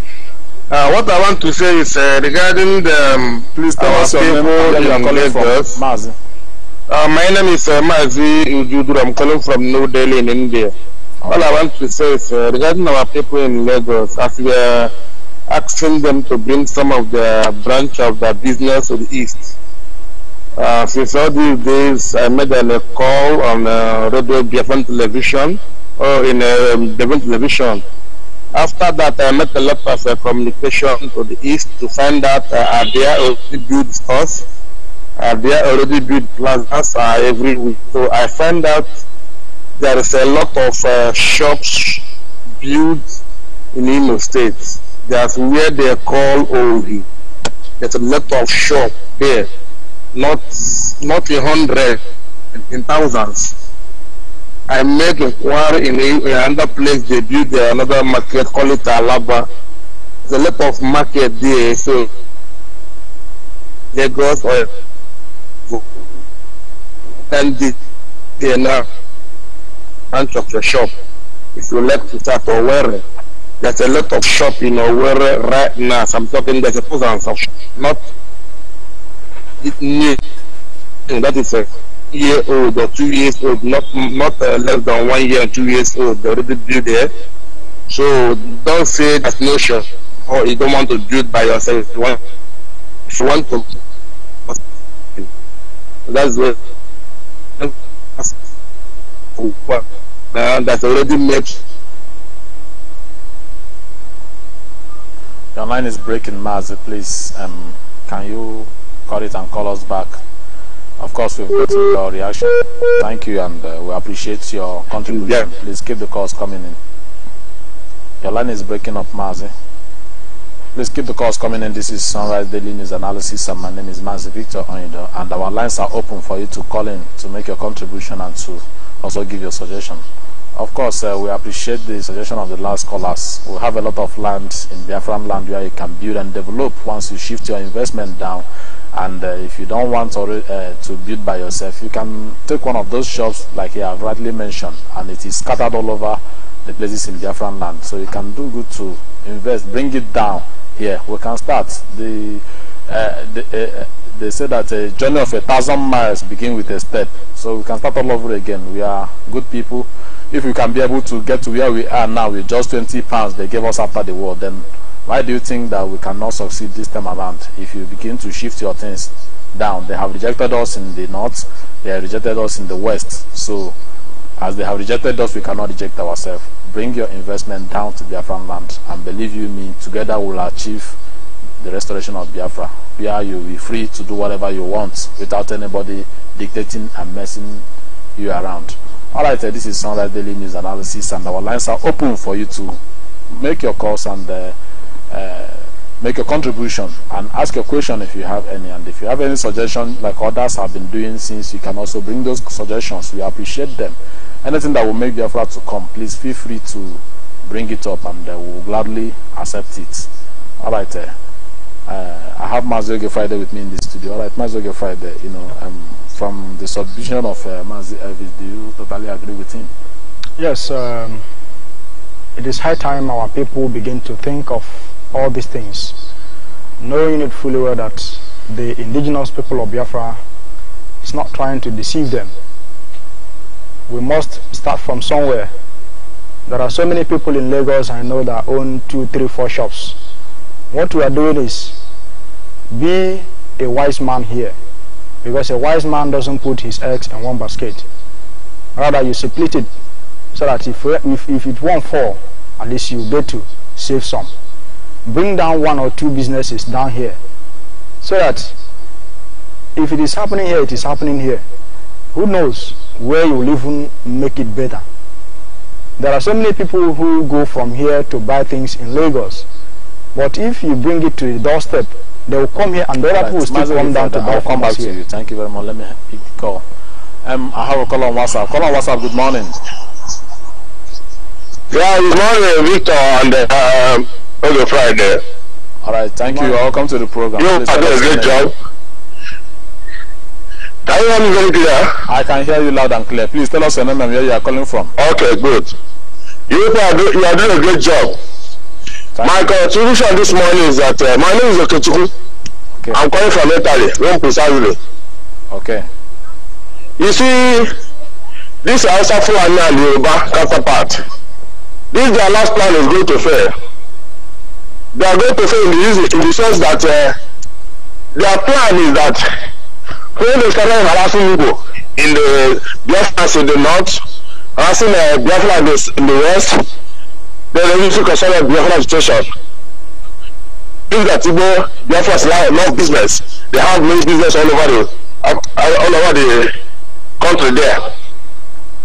Speaker 4: Uh, what I want to say is uh, regarding the um, police tower people in Lagos. Uh, my name is uh, Mazi I'm calling from New Delhi in India. All I want to say is uh, regarding our people in Lagos, as we are asking them to bring some of the branch of the business to the east. Uh, since all these days, I made a call on uh, radio, Biafran television, or in uh, Devon television. After that, I met a lot of uh, communication to the east to find out uh, are there already built stores, are there already built plazas uh, every week. So I find out there is a lot of uh, shops built in Imo State. That's where they call Ohi. There's a lot of shop there, not not a hundred, in thousands. I make inquiry in a, another place they build the, another market, call it Alaba. There's a lot of market there, so they Lagos or and the DNA uh, branch of the shop. If you like to start Owerri, there's a lot of shop in Owerri right now. So I'm talking there's a thousands of shop, not it new. That is a year old or two years old, not not uh, less than one year and two years old. They already do there. So don't say that's no sure or you don't want to do it by yourself. You want, if you want to, that's what. Uh, that's already made.
Speaker 2: Your line is breaking, Mazi. Please, um, can you cut it and call us back? Of course, we've gotten your reaction. Thank you, and uh, we appreciate your contribution. Please keep the calls coming in. Your line is breaking up, Mazi. Please keep the calls coming in. This is Sunrise Daily News Analysis, and my name is Mazi Victor Onido, and our lines are open for you to call in to make your contribution and to also give your suggestion. Of course, uh, we appreciate the suggestion of the last callers. We have a lot of land in Biafran land where you can build and develop once you shift your investment down. And uh, if you don't want to, uh, to build by yourself, you can take one of those shops, like I have rightly mentioned, and it is scattered all over the places in Biafran land. So you can do good to invest, bring it down here. We can start. The uh, uh, uh, they say that a journey of a thousand miles begin with a step so we can start all over again we are good people if we can be able to get to where we are now with just 20 pounds they gave us after the war then why do you think that we cannot succeed this time around if you begin to shift your things down they have rejected us in the north they have rejected us in the west so as they have rejected us we cannot reject ourselves bring your investment down to their land and believe you me together we'll achieve the restoration of Biafra, where you'll be free to do whatever you want without anybody dictating and messing you around. Alright, uh, this is Sunlight Daily News Analysis, and our lines are open for you to make your calls and uh, uh, make your contribution and ask your question if you have any. And if you have any suggestion, like others have been doing since, you can also bring those suggestions. We appreciate them. Anything that will make Biafra to come, please feel free to bring it up, and uh, we will gladly accept it. Alright. Uh, uh, I have Mazio Gefride with me in the studio. All right, Mazio Gefride, you know, um, from the submission of uh, Mazio uh, do you totally agree with him?
Speaker 3: Yes, um, it is high time our people begin to think of all these things, knowing it fully well that the indigenous people of Biafra is not trying to deceive them. We must start from somewhere. There are so many people in Lagos I know that own two, three, four shops. What we are doing is be a wise man here, because a wise man doesn't put his eggs in one basket. Rather, you split it so that if, if, if it won't fall, at least you get to save some. Bring down one or two businesses down here so that if it is happening here, it is happening here. Who knows where you will even make it better? There are so many people who go from here to buy things in Lagos. But if you bring it to the doorstep They will come here and the other people will still come down to I'll come back here. to you.
Speaker 2: Thank you very much. Let me call. Um, I have a call on WhatsApp. Call on WhatsApp. Good morning.
Speaker 1: Yeah, good morning, Victor and
Speaker 2: uh, um, Friday. All right, thank you. Welcome to the program. You are doing a great job. Can you hear me very clear? I can hear you loud and clear. Please tell us your name and where you are calling from.
Speaker 4: Okay, good. you are doing a great job. Thank my contribution this morning is that uh, my name is Okechukwu. Okay. I'm calling from Italy, Rome precisely. Okay. You see, this also for and Yoruba counterpart, this their last plan is going to fail. They are going to fail in the, in the sense that uh, their plan is that when they started harassing Igbo in the Biafra in the north, harassing uh, Biafra in the west, lọ́rọ̀ yìí fún concern of biafra situation nígbà tí gbọ́ biafra still have enough business they have many business all over the all over the country there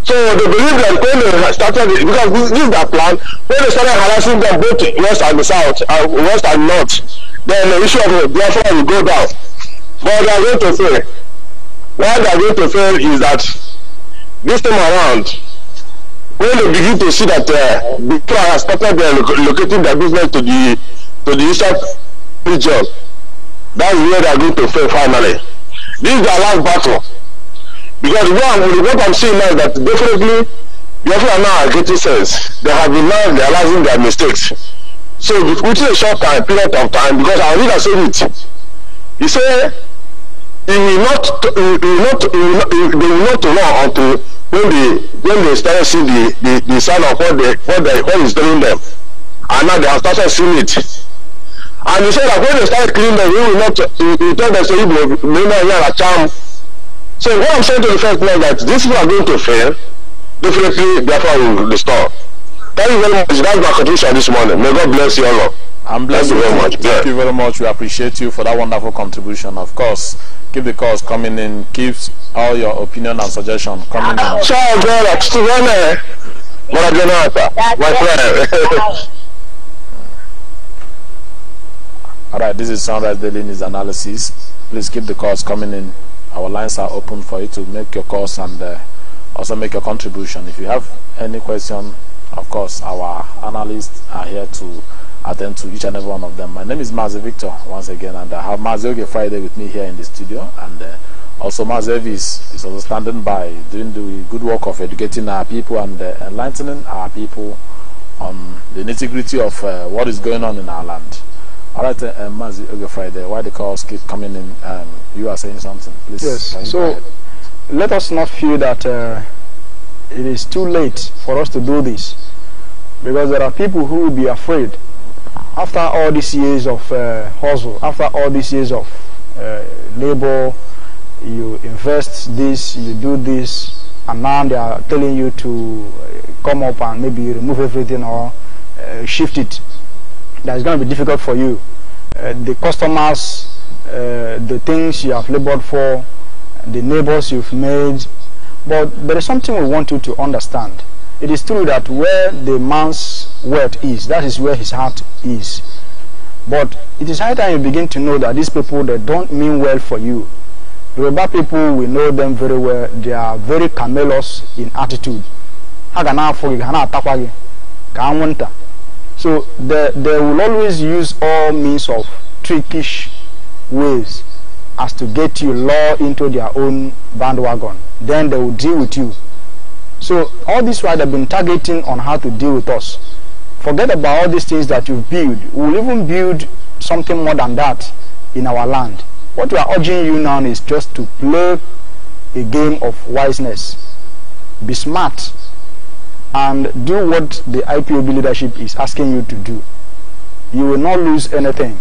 Speaker 4: so they believe that when they started the, because this, is their plan when they started harassing them both west and south uh, west and north then the issue of biafra will go down but they are going to fail what they are going to fail is that this time around when they begin to see that uh, the people have started uh, locating their business to the to the eastern region that is where they are going to fail finally this is their last battle because one what i'm seeing now is that definitely biafra now are getting sense they have been now realizing their mistakes so within a short time period of time because our leader said it he say it will not it will not it will not, it will not know until when they when they start see the the the sign of what they what they what is doing them and now they have started seeing it and he said that when they start clean them he will not he, he told them say ibo mena yara charm so what i'm saying to the first man that this people going to fail definitely therefore will restore thank you very much that's my contribution this morning may god bless you all. Up.
Speaker 2: And bless Thank you very much. Thank you very much. We appreciate you for that wonderful contribution. Of course, keep the calls coming in. Keep all your opinion and suggestion coming in. Ciao, Ciao,
Speaker 4: My friend.
Speaker 2: all right, this is Sunrise Daily News Analysis. Please keep the calls coming in. Our lines are open for you to make your calls and uh, also make your contribution. If you have any question, of course, our analysts are here to attend to each and every one of them. My name is Mazi Victor once again, and I have Mazi Oge Friday with me here in the studio, and uh, also Mazi is is also standing by doing the good work of educating our people and uh, enlightening our people on the nitty gritty of uh, what is going on in our land. All right, uh, um, Oge Friday, why the calls keep coming in? Um, you are saying something,
Speaker 3: please. Yes, so let us not feel that uh, it is too late for us to do this because there are people who will be afraid after all these years of uh, hustle, after all these years of uh, labor, you invest this, you do this, and now they are telling you to uh, come up and maybe remove everything or uh, shift it. That's going to be difficult for you. Uh, the customers, uh, the things you have labored for, the neighbors you've made, but there is something we want you to understand. It is true that where the man's wealth is, that is where his heart is. But it is high time you begin to know that these people that don't mean well for you. Yoruba people, we know them very well. They are very camelous in attitude. So they, they will always use all means of trickish ways as to get you law into their own bandwagon. Then they will deal with you so all this while they've been targeting on how to deal with us. Forget about all these things that you've built. We'll even build something more than that in our land. What we are urging you now is just to play a game of wiseness. Be smart and do what the IPOB leadership is asking you to do. You will not lose anything.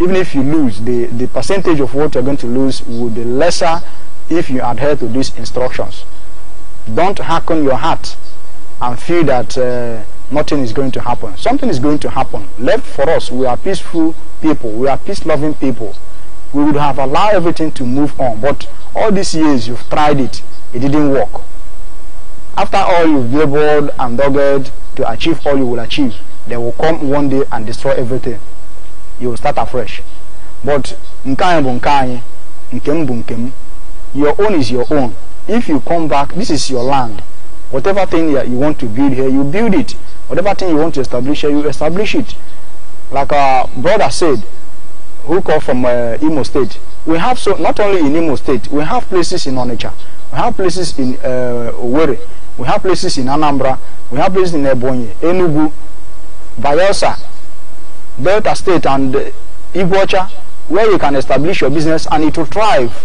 Speaker 3: Even if you lose, the, the percentage of what you're going to lose will be lesser if you adhere to these instructions. Don't on your heart and feel that uh, nothing is going to happen. Something is going to happen. Left for us, we are peaceful people. We are peace-loving people. We would have allowed everything to move on. But all these years, you've tried it. It didn't work. After all you've labored and dogged to achieve all you will achieve, they will come one day and destroy everything. You will start afresh. But your own is your own. if you come back, this is your land. Whatever thing you want to build here, you build it. Whatever thing you want to establish here, you establish it. Like our brother said, who called from uh, Imo State, we have so not only in Imo State, we have places in Onitsha, we have places in uh, Owerri, we have places in Anambra, we have places in Ebonyi, Enugu, Bayelsa, Delta State, and uh, Igbocha, where you can establish your business and it will thrive.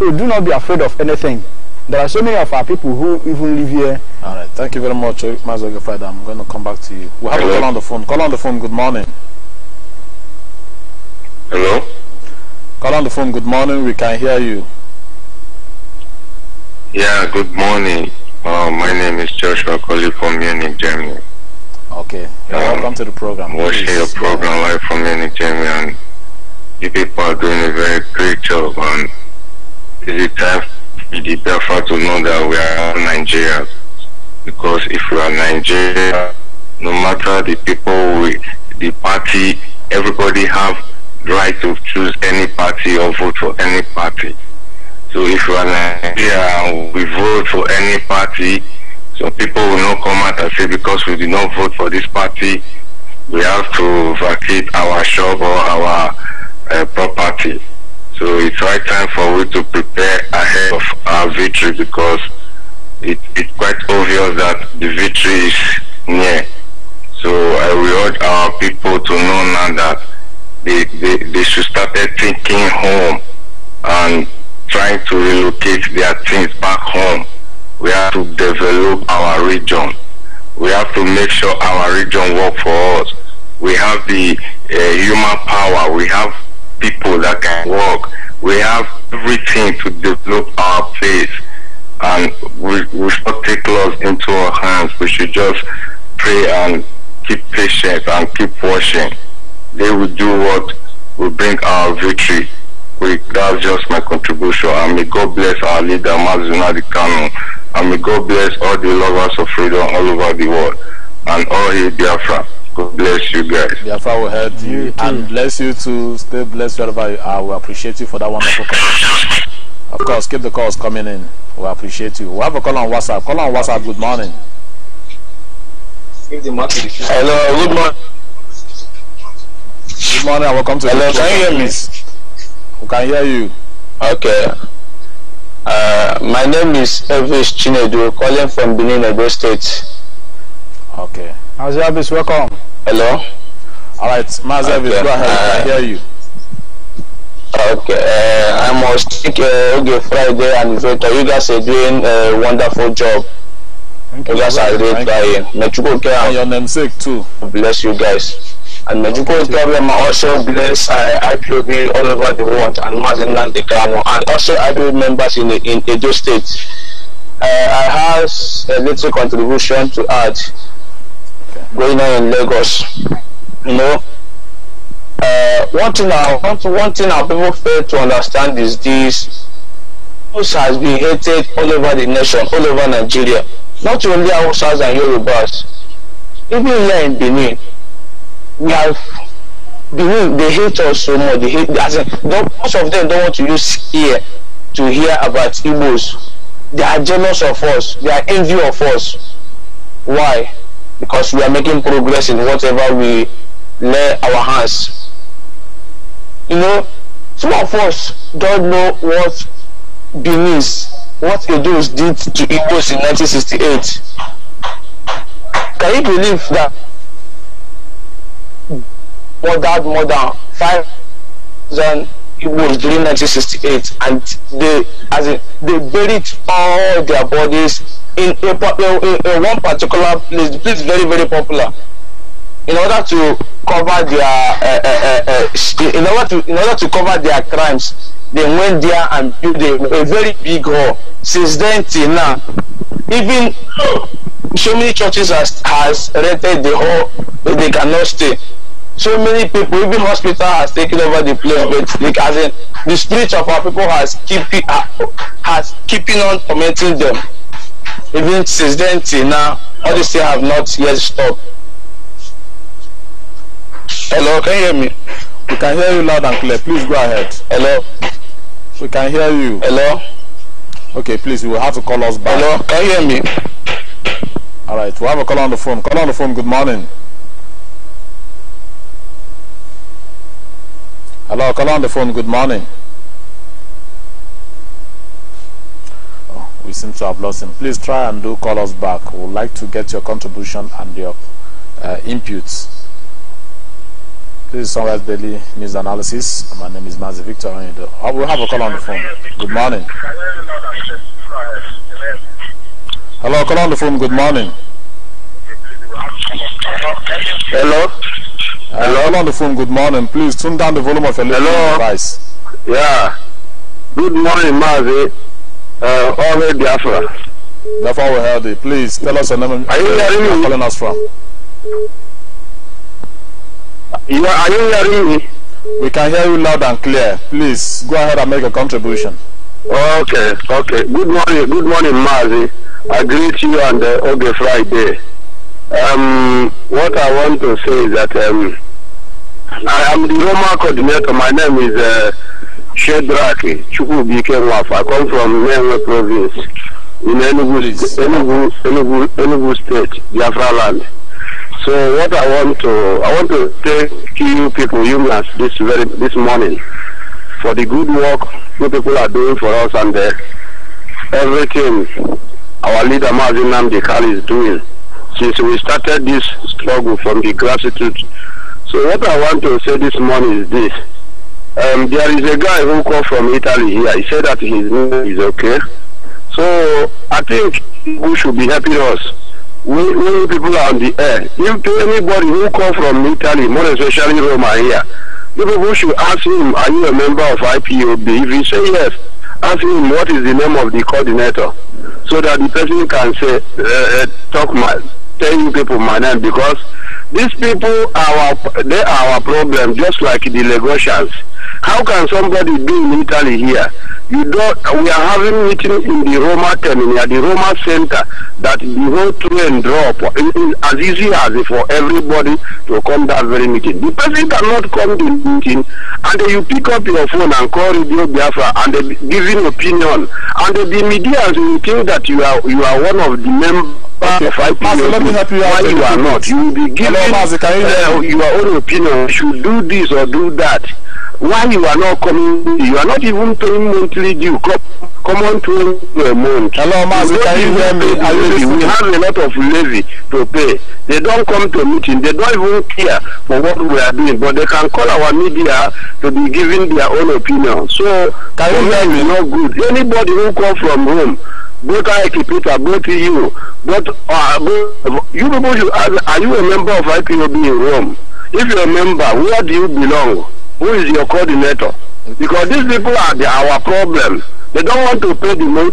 Speaker 3: So do not be afraid of anything. There are so many of our people who even live here.
Speaker 2: All right. Thank you very much, Mazoga Father. I'm going to come back to you. we have Hello? a call on the phone. Call on the phone. Good morning. Hello? Call on the phone. Good morning. We can hear
Speaker 1: you. Yeah, good morning. Uh, my name is Joshua calling from Munich, Germany.
Speaker 2: Okay. Um, welcome to the program. Watching your
Speaker 1: program yeah. live from Munich, Germany. And you people are doing a very great job. And is it time it is Biafra to know that we are Nigerians. Because if we are Nigeria, no matter the people, we, the party, everybody have right to choose any party or vote for any party. So if we are Nigeria, we vote for any party. So people will not come out and say because we did not vote for this party, we have to vacate our shop or our uh, property. So it's right time for we to prepare ahead of our victory because it, it's quite obvious that the victory is near. So I will urge our people to know now that they, they, they should start thinking home and trying to relocate their things back home. We have to develop our region. We have to make sure our region work for us. We have the uh, human power. We have people that can work. We have everything to develop our place and we, we should not take laws into our hands. We should just pray and keep patient and keep watching. They will do what will bring our victory. We, that's just my contribution. And may God bless our leader, Mazunadi Kanu. And may God bless all the lovers of freedom all over the world and all his Biafra. God bless you guys. The Alpha will
Speaker 2: help you, you and bless you too. Stay blessed wherever you are. We appreciate you for that wonderful call. Of course, keep the calls coming in. We appreciate you. We have a call on WhatsApp. Call on WhatsApp. Good morning.
Speaker 4: Hello. Good morning. Good morning and welcome to. Hello. Can you hear me? We can hear you. Okay.
Speaker 3: Uh, my name is Elvis Chinedu, calling from Benin, Edo State. Okay. Mazab welcome. Hello. All right,
Speaker 4: Mazab okay. go ahead. I uh, hear you. Uh, okay, uh, I must thank uh, Oge Friday and Victor. You guys are doing a wonderful job. Thank you, you guys are really trying. Mechuko and your namesake too. Bless you guys. And Mechuko Problem also bless uh, IPOB all over the world and Mazinland Ikano and also IPOB members in, in Edo State. Uh, I have a little contribution to add. going on in Lagos. You know, uh, one thing I want, one thing our people fail to understand is this: Hausa has been hated all over the nation, all over Nigeria. Not only Hausas and Yorubas, even here in Benin, we have Benin. They hate us so much. They hate. As in, most of them don't want to use ear
Speaker 3: to hear about Igbos. They are jealous of us. They are envy of us. Why? because we are making progress in whatever we lay our hands.
Speaker 4: You know, some of us don't know what
Speaker 3: Benin's, what Edo's did to Igbos in 1968.
Speaker 4: Can you believe that murdered more than 5,000 It was during 1968, and they as in, they buried all their bodies in a in, in one particular place. The place is very very popular. In order to cover their uh, uh, uh, in order to in order to cover their crimes, they went there and built a, a very big hall. Since then till now, even so many churches has has rented the hall, but they cannot stay so many people even hospital has taken over the place but like as in the spirit of our people has keeping uh, has keeping on tormenting them even since then till now all this things have not yet stopped hello can you hear me we can hear you loud and clear please go ahead hello we can hear
Speaker 2: you hello okay please you will have to call us back hello can you hear me all right we have a call on the phone call on the phone good morning Hello, call on the phone. Good morning. Oh, we seem to have lost him. Please try and do call us back. We would like to get your contribution and your uh, inputs. This is Sunrise Daily News Analysis. My name is Mazi Victor and oh, we'll have a call on the phone. Good morning. Hello, call on the phone. Good morning.
Speaker 4: Hello.
Speaker 2: Hello? Hello on the phone, good morning. Please tune down the volume of your Hello? device. Yeah. Good morning, Mazi. Uh, Ove Biafra. we heard it. Please tell us your name. Are you hearing me? calling us from. Yeah. are, you hearing me? We can hear you loud and clear. Please go ahead and make a contribution.
Speaker 4: Okay, okay. Good morning, good morning, Mazi. I greet you on the uh, Oge Friday. Um, what I want to say is that um, I am the Roma coordinator. My name is uh, Shedraki Chukwubike Nwaf. I come from Menwe province in Enugu, Enugu, Enugu, Enugu state, Biafra land. So what I want to, I want to thank you people, humans, this very, this morning for the good work you people are doing for us and uh, everything our leader Mazin Namdekal is doing. since we started this struggle from the grassroots. So what I want to say this morning is this. Um, there is a guy who called from Italy here. He said that his name is okay. So I think who should be helping us. We, we people are on the air. If anybody who call from Italy, more especially Roma here, people who should ask him, are you a member of IPOB? If he say yes, ask him what is the name of the coordinator so that the person can say, uh, uh, talk my, tell you people my name because these people are our, they are our problem just like the Lagosians. How can somebody be in Italy here? You don't. We are having meeting in the Roma terminal, the Roma center, that the whole train drop. It is as easy as for everybody to come that very meeting. The person cannot come to the meeting, and you pick up your phone and call Radio Biafra and they give an opinion, and the media will think that you are you are one of the members. Okay. Master, let me help you out. Why you are not? You will be given Hello, Master, you, uh, your own opinion. You should do this or do that why you are not coming you are not even paying monthly due come, come on to a month hello master can you hear me are you listening we have a lot of levy to pay they don't come to meeting they don't even care for what we are doing but they can call our media to be giving their own opinion so can you hear me not good anybody who come from home both IKPITA, both you, both, uh, both you people should ask, are you a member of IPOB in Rome? If you are a member, where do you belong? who is your coordinator? Because these people are the, our problem. They don't want to pay the money.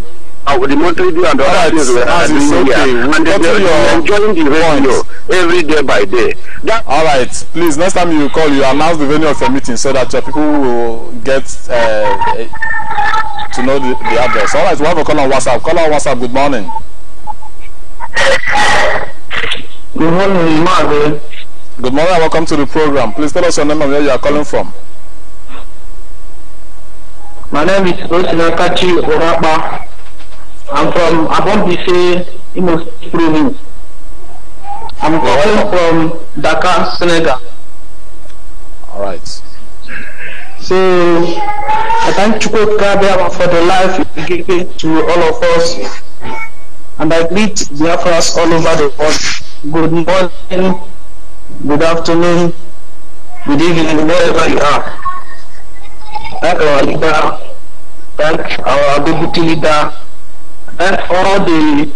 Speaker 4: Uh, the monthly deal and the other things we're okay. And they, are enjoying the radio every day by day. That All right. Please, next time you call,
Speaker 2: you announce the venue of your meeting so that your people will get uh, to know the, the address. All right. We have a call on WhatsApp. Call on WhatsApp. Good morning.
Speaker 4: Good morning, Marvin. Good morning and welcome to the program. Please tell us your name and where you are calling from. My name is Osinakachi Orapa. I'm from Abombise, Imo Province. I'm calling from Dakar, Senegal. All right.
Speaker 1: So, I
Speaker 4: thank Chukwu Kabiyama for the life he gave to all of us. And I greet Biafras all over the world. Good morning. good afternoon, good evening, wherever you are. Thank our leader, thank our deputy leader, thank all the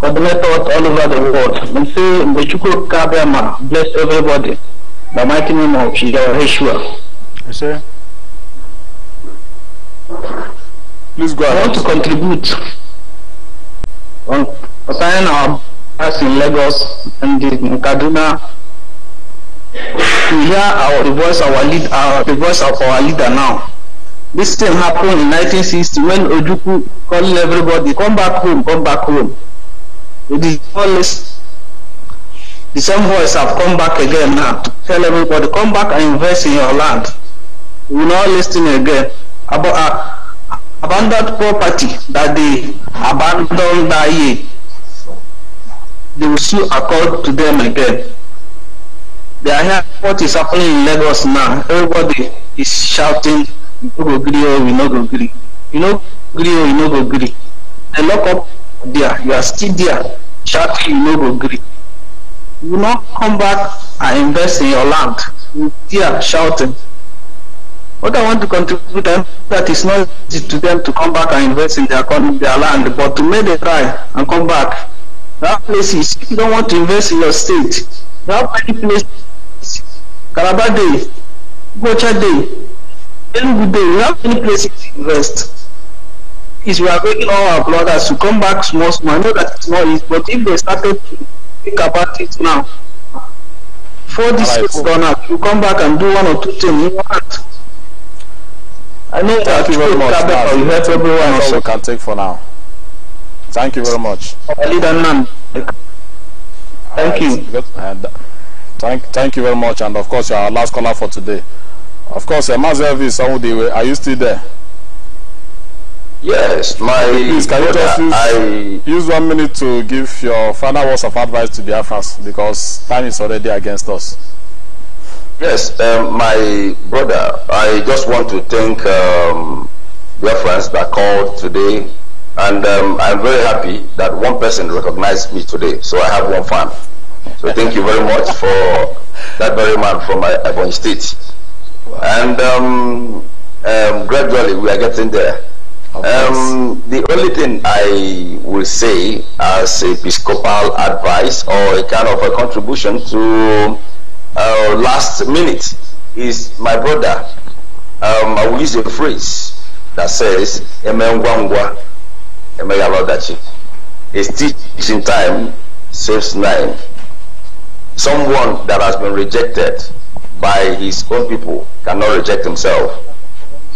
Speaker 4: coordinators all over the world. And say, Mbechuku Kabema, bless everybody. The mighty
Speaker 3: name of Yahweh. Yes, sir.
Speaker 4: Please go ahead. I want to contribute on concerning our class in Lagos and in Kaduna to hear our, the voice our lead, our, uh, the voice of our leader now. This thing happened in 1960 when Ojukwu calling everybody, come back home, come back home. The, always, the same voice have come back again now to tell everybody, come back and invest in your land. We will not listen again. About, uh, abandoned property that they abandoned that year, they will soon accord to them again. They are here. what is happening in Lagos now. Everybody is shouting, you no go gree, or oh, you no go gree. You know, gree, or oh, you no go gree. They lock up there. You are still there shouting, you no go gree. You not come back and invest in your land. You there shouting. What I want to contribute them that is not easy to them to come back and invest in their their land, but to make them try and come back. That are places you don't want to invest in your state. That many places Calabar Day, Gocha Day, Enugu Day. We have many places to invest. Is we are begging all our brothers to come back small, small. I know that it's not easy, but if they started to think about it now, for this right, is gone up, you come back and do one or two things. You want. I know Thank that you very much. Now, you
Speaker 2: help everyone. That's we can take for now. Thank you very much. Thank you. Thank, thank you very much. And of course, you are our last caller for today. Of course, uh, Elvis are you still there?
Speaker 4: Yes, my. Please, can you just use, I,
Speaker 2: use one minute to give your final words of advice to Biafrans because time is already against us.
Speaker 4: Yes, um, my brother, I just want to thank um, Biafrans that called today, and um, I'm very happy that one person recognized me today, so I have one fan. So thank you very much for that very man from uh, Ebony State. Wow. And um, um, gradually we are getting there. Um, the only thing I will say as episcopal advice or a kind of a contribution to uh, last minute is my brother. Um, I will use a phrase that says, Emengwangwa, Emeyabadachi. It's teaching time saves nine someone that has been rejected by his own people cannot reject himself.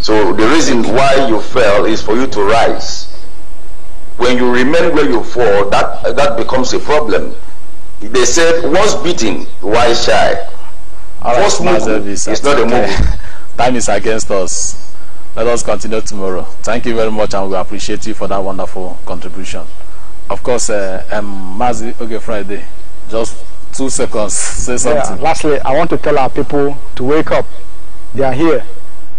Speaker 4: So the reason why you fell is for you to rise. When you remain where you fall, that, that becomes a problem. They said, once beaten, why shy? All right, First
Speaker 2: move not a move. Time is against us. Let us continue tomorrow. Thank you very much, and we appreciate you for that wonderful contribution. Of course, uh, um, Mazi okay, Friday, just Two seconds. Say something. Yeah,
Speaker 3: lastly, I want to tell our people to wake up. They are here,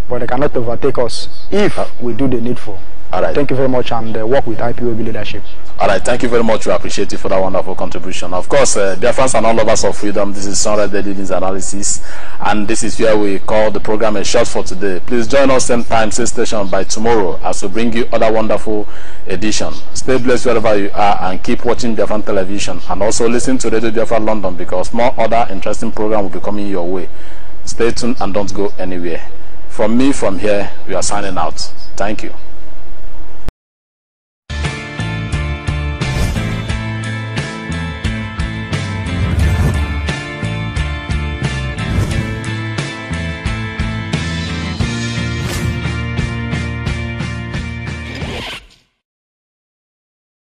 Speaker 3: but they cannot overtake us if we do the needful. All right. Thank you very much and uh, work with IPOB leadership.
Speaker 2: All right. Thank you very much. We appreciate you for that wonderful contribution. Of course, uh, dear friends and all lovers of freedom, this is Sonra Daily News Analysis, and this is where we call the program a shot for today. Please join us same time, same station by tomorrow as we bring you other wonderful edition. Stay blessed wherever you are and keep watching Biafran television and also listen to Radio Biafra London because more other interesting program will be coming your way. Stay tuned and don't go anywhere. From me, from here, we are signing out. Thank you.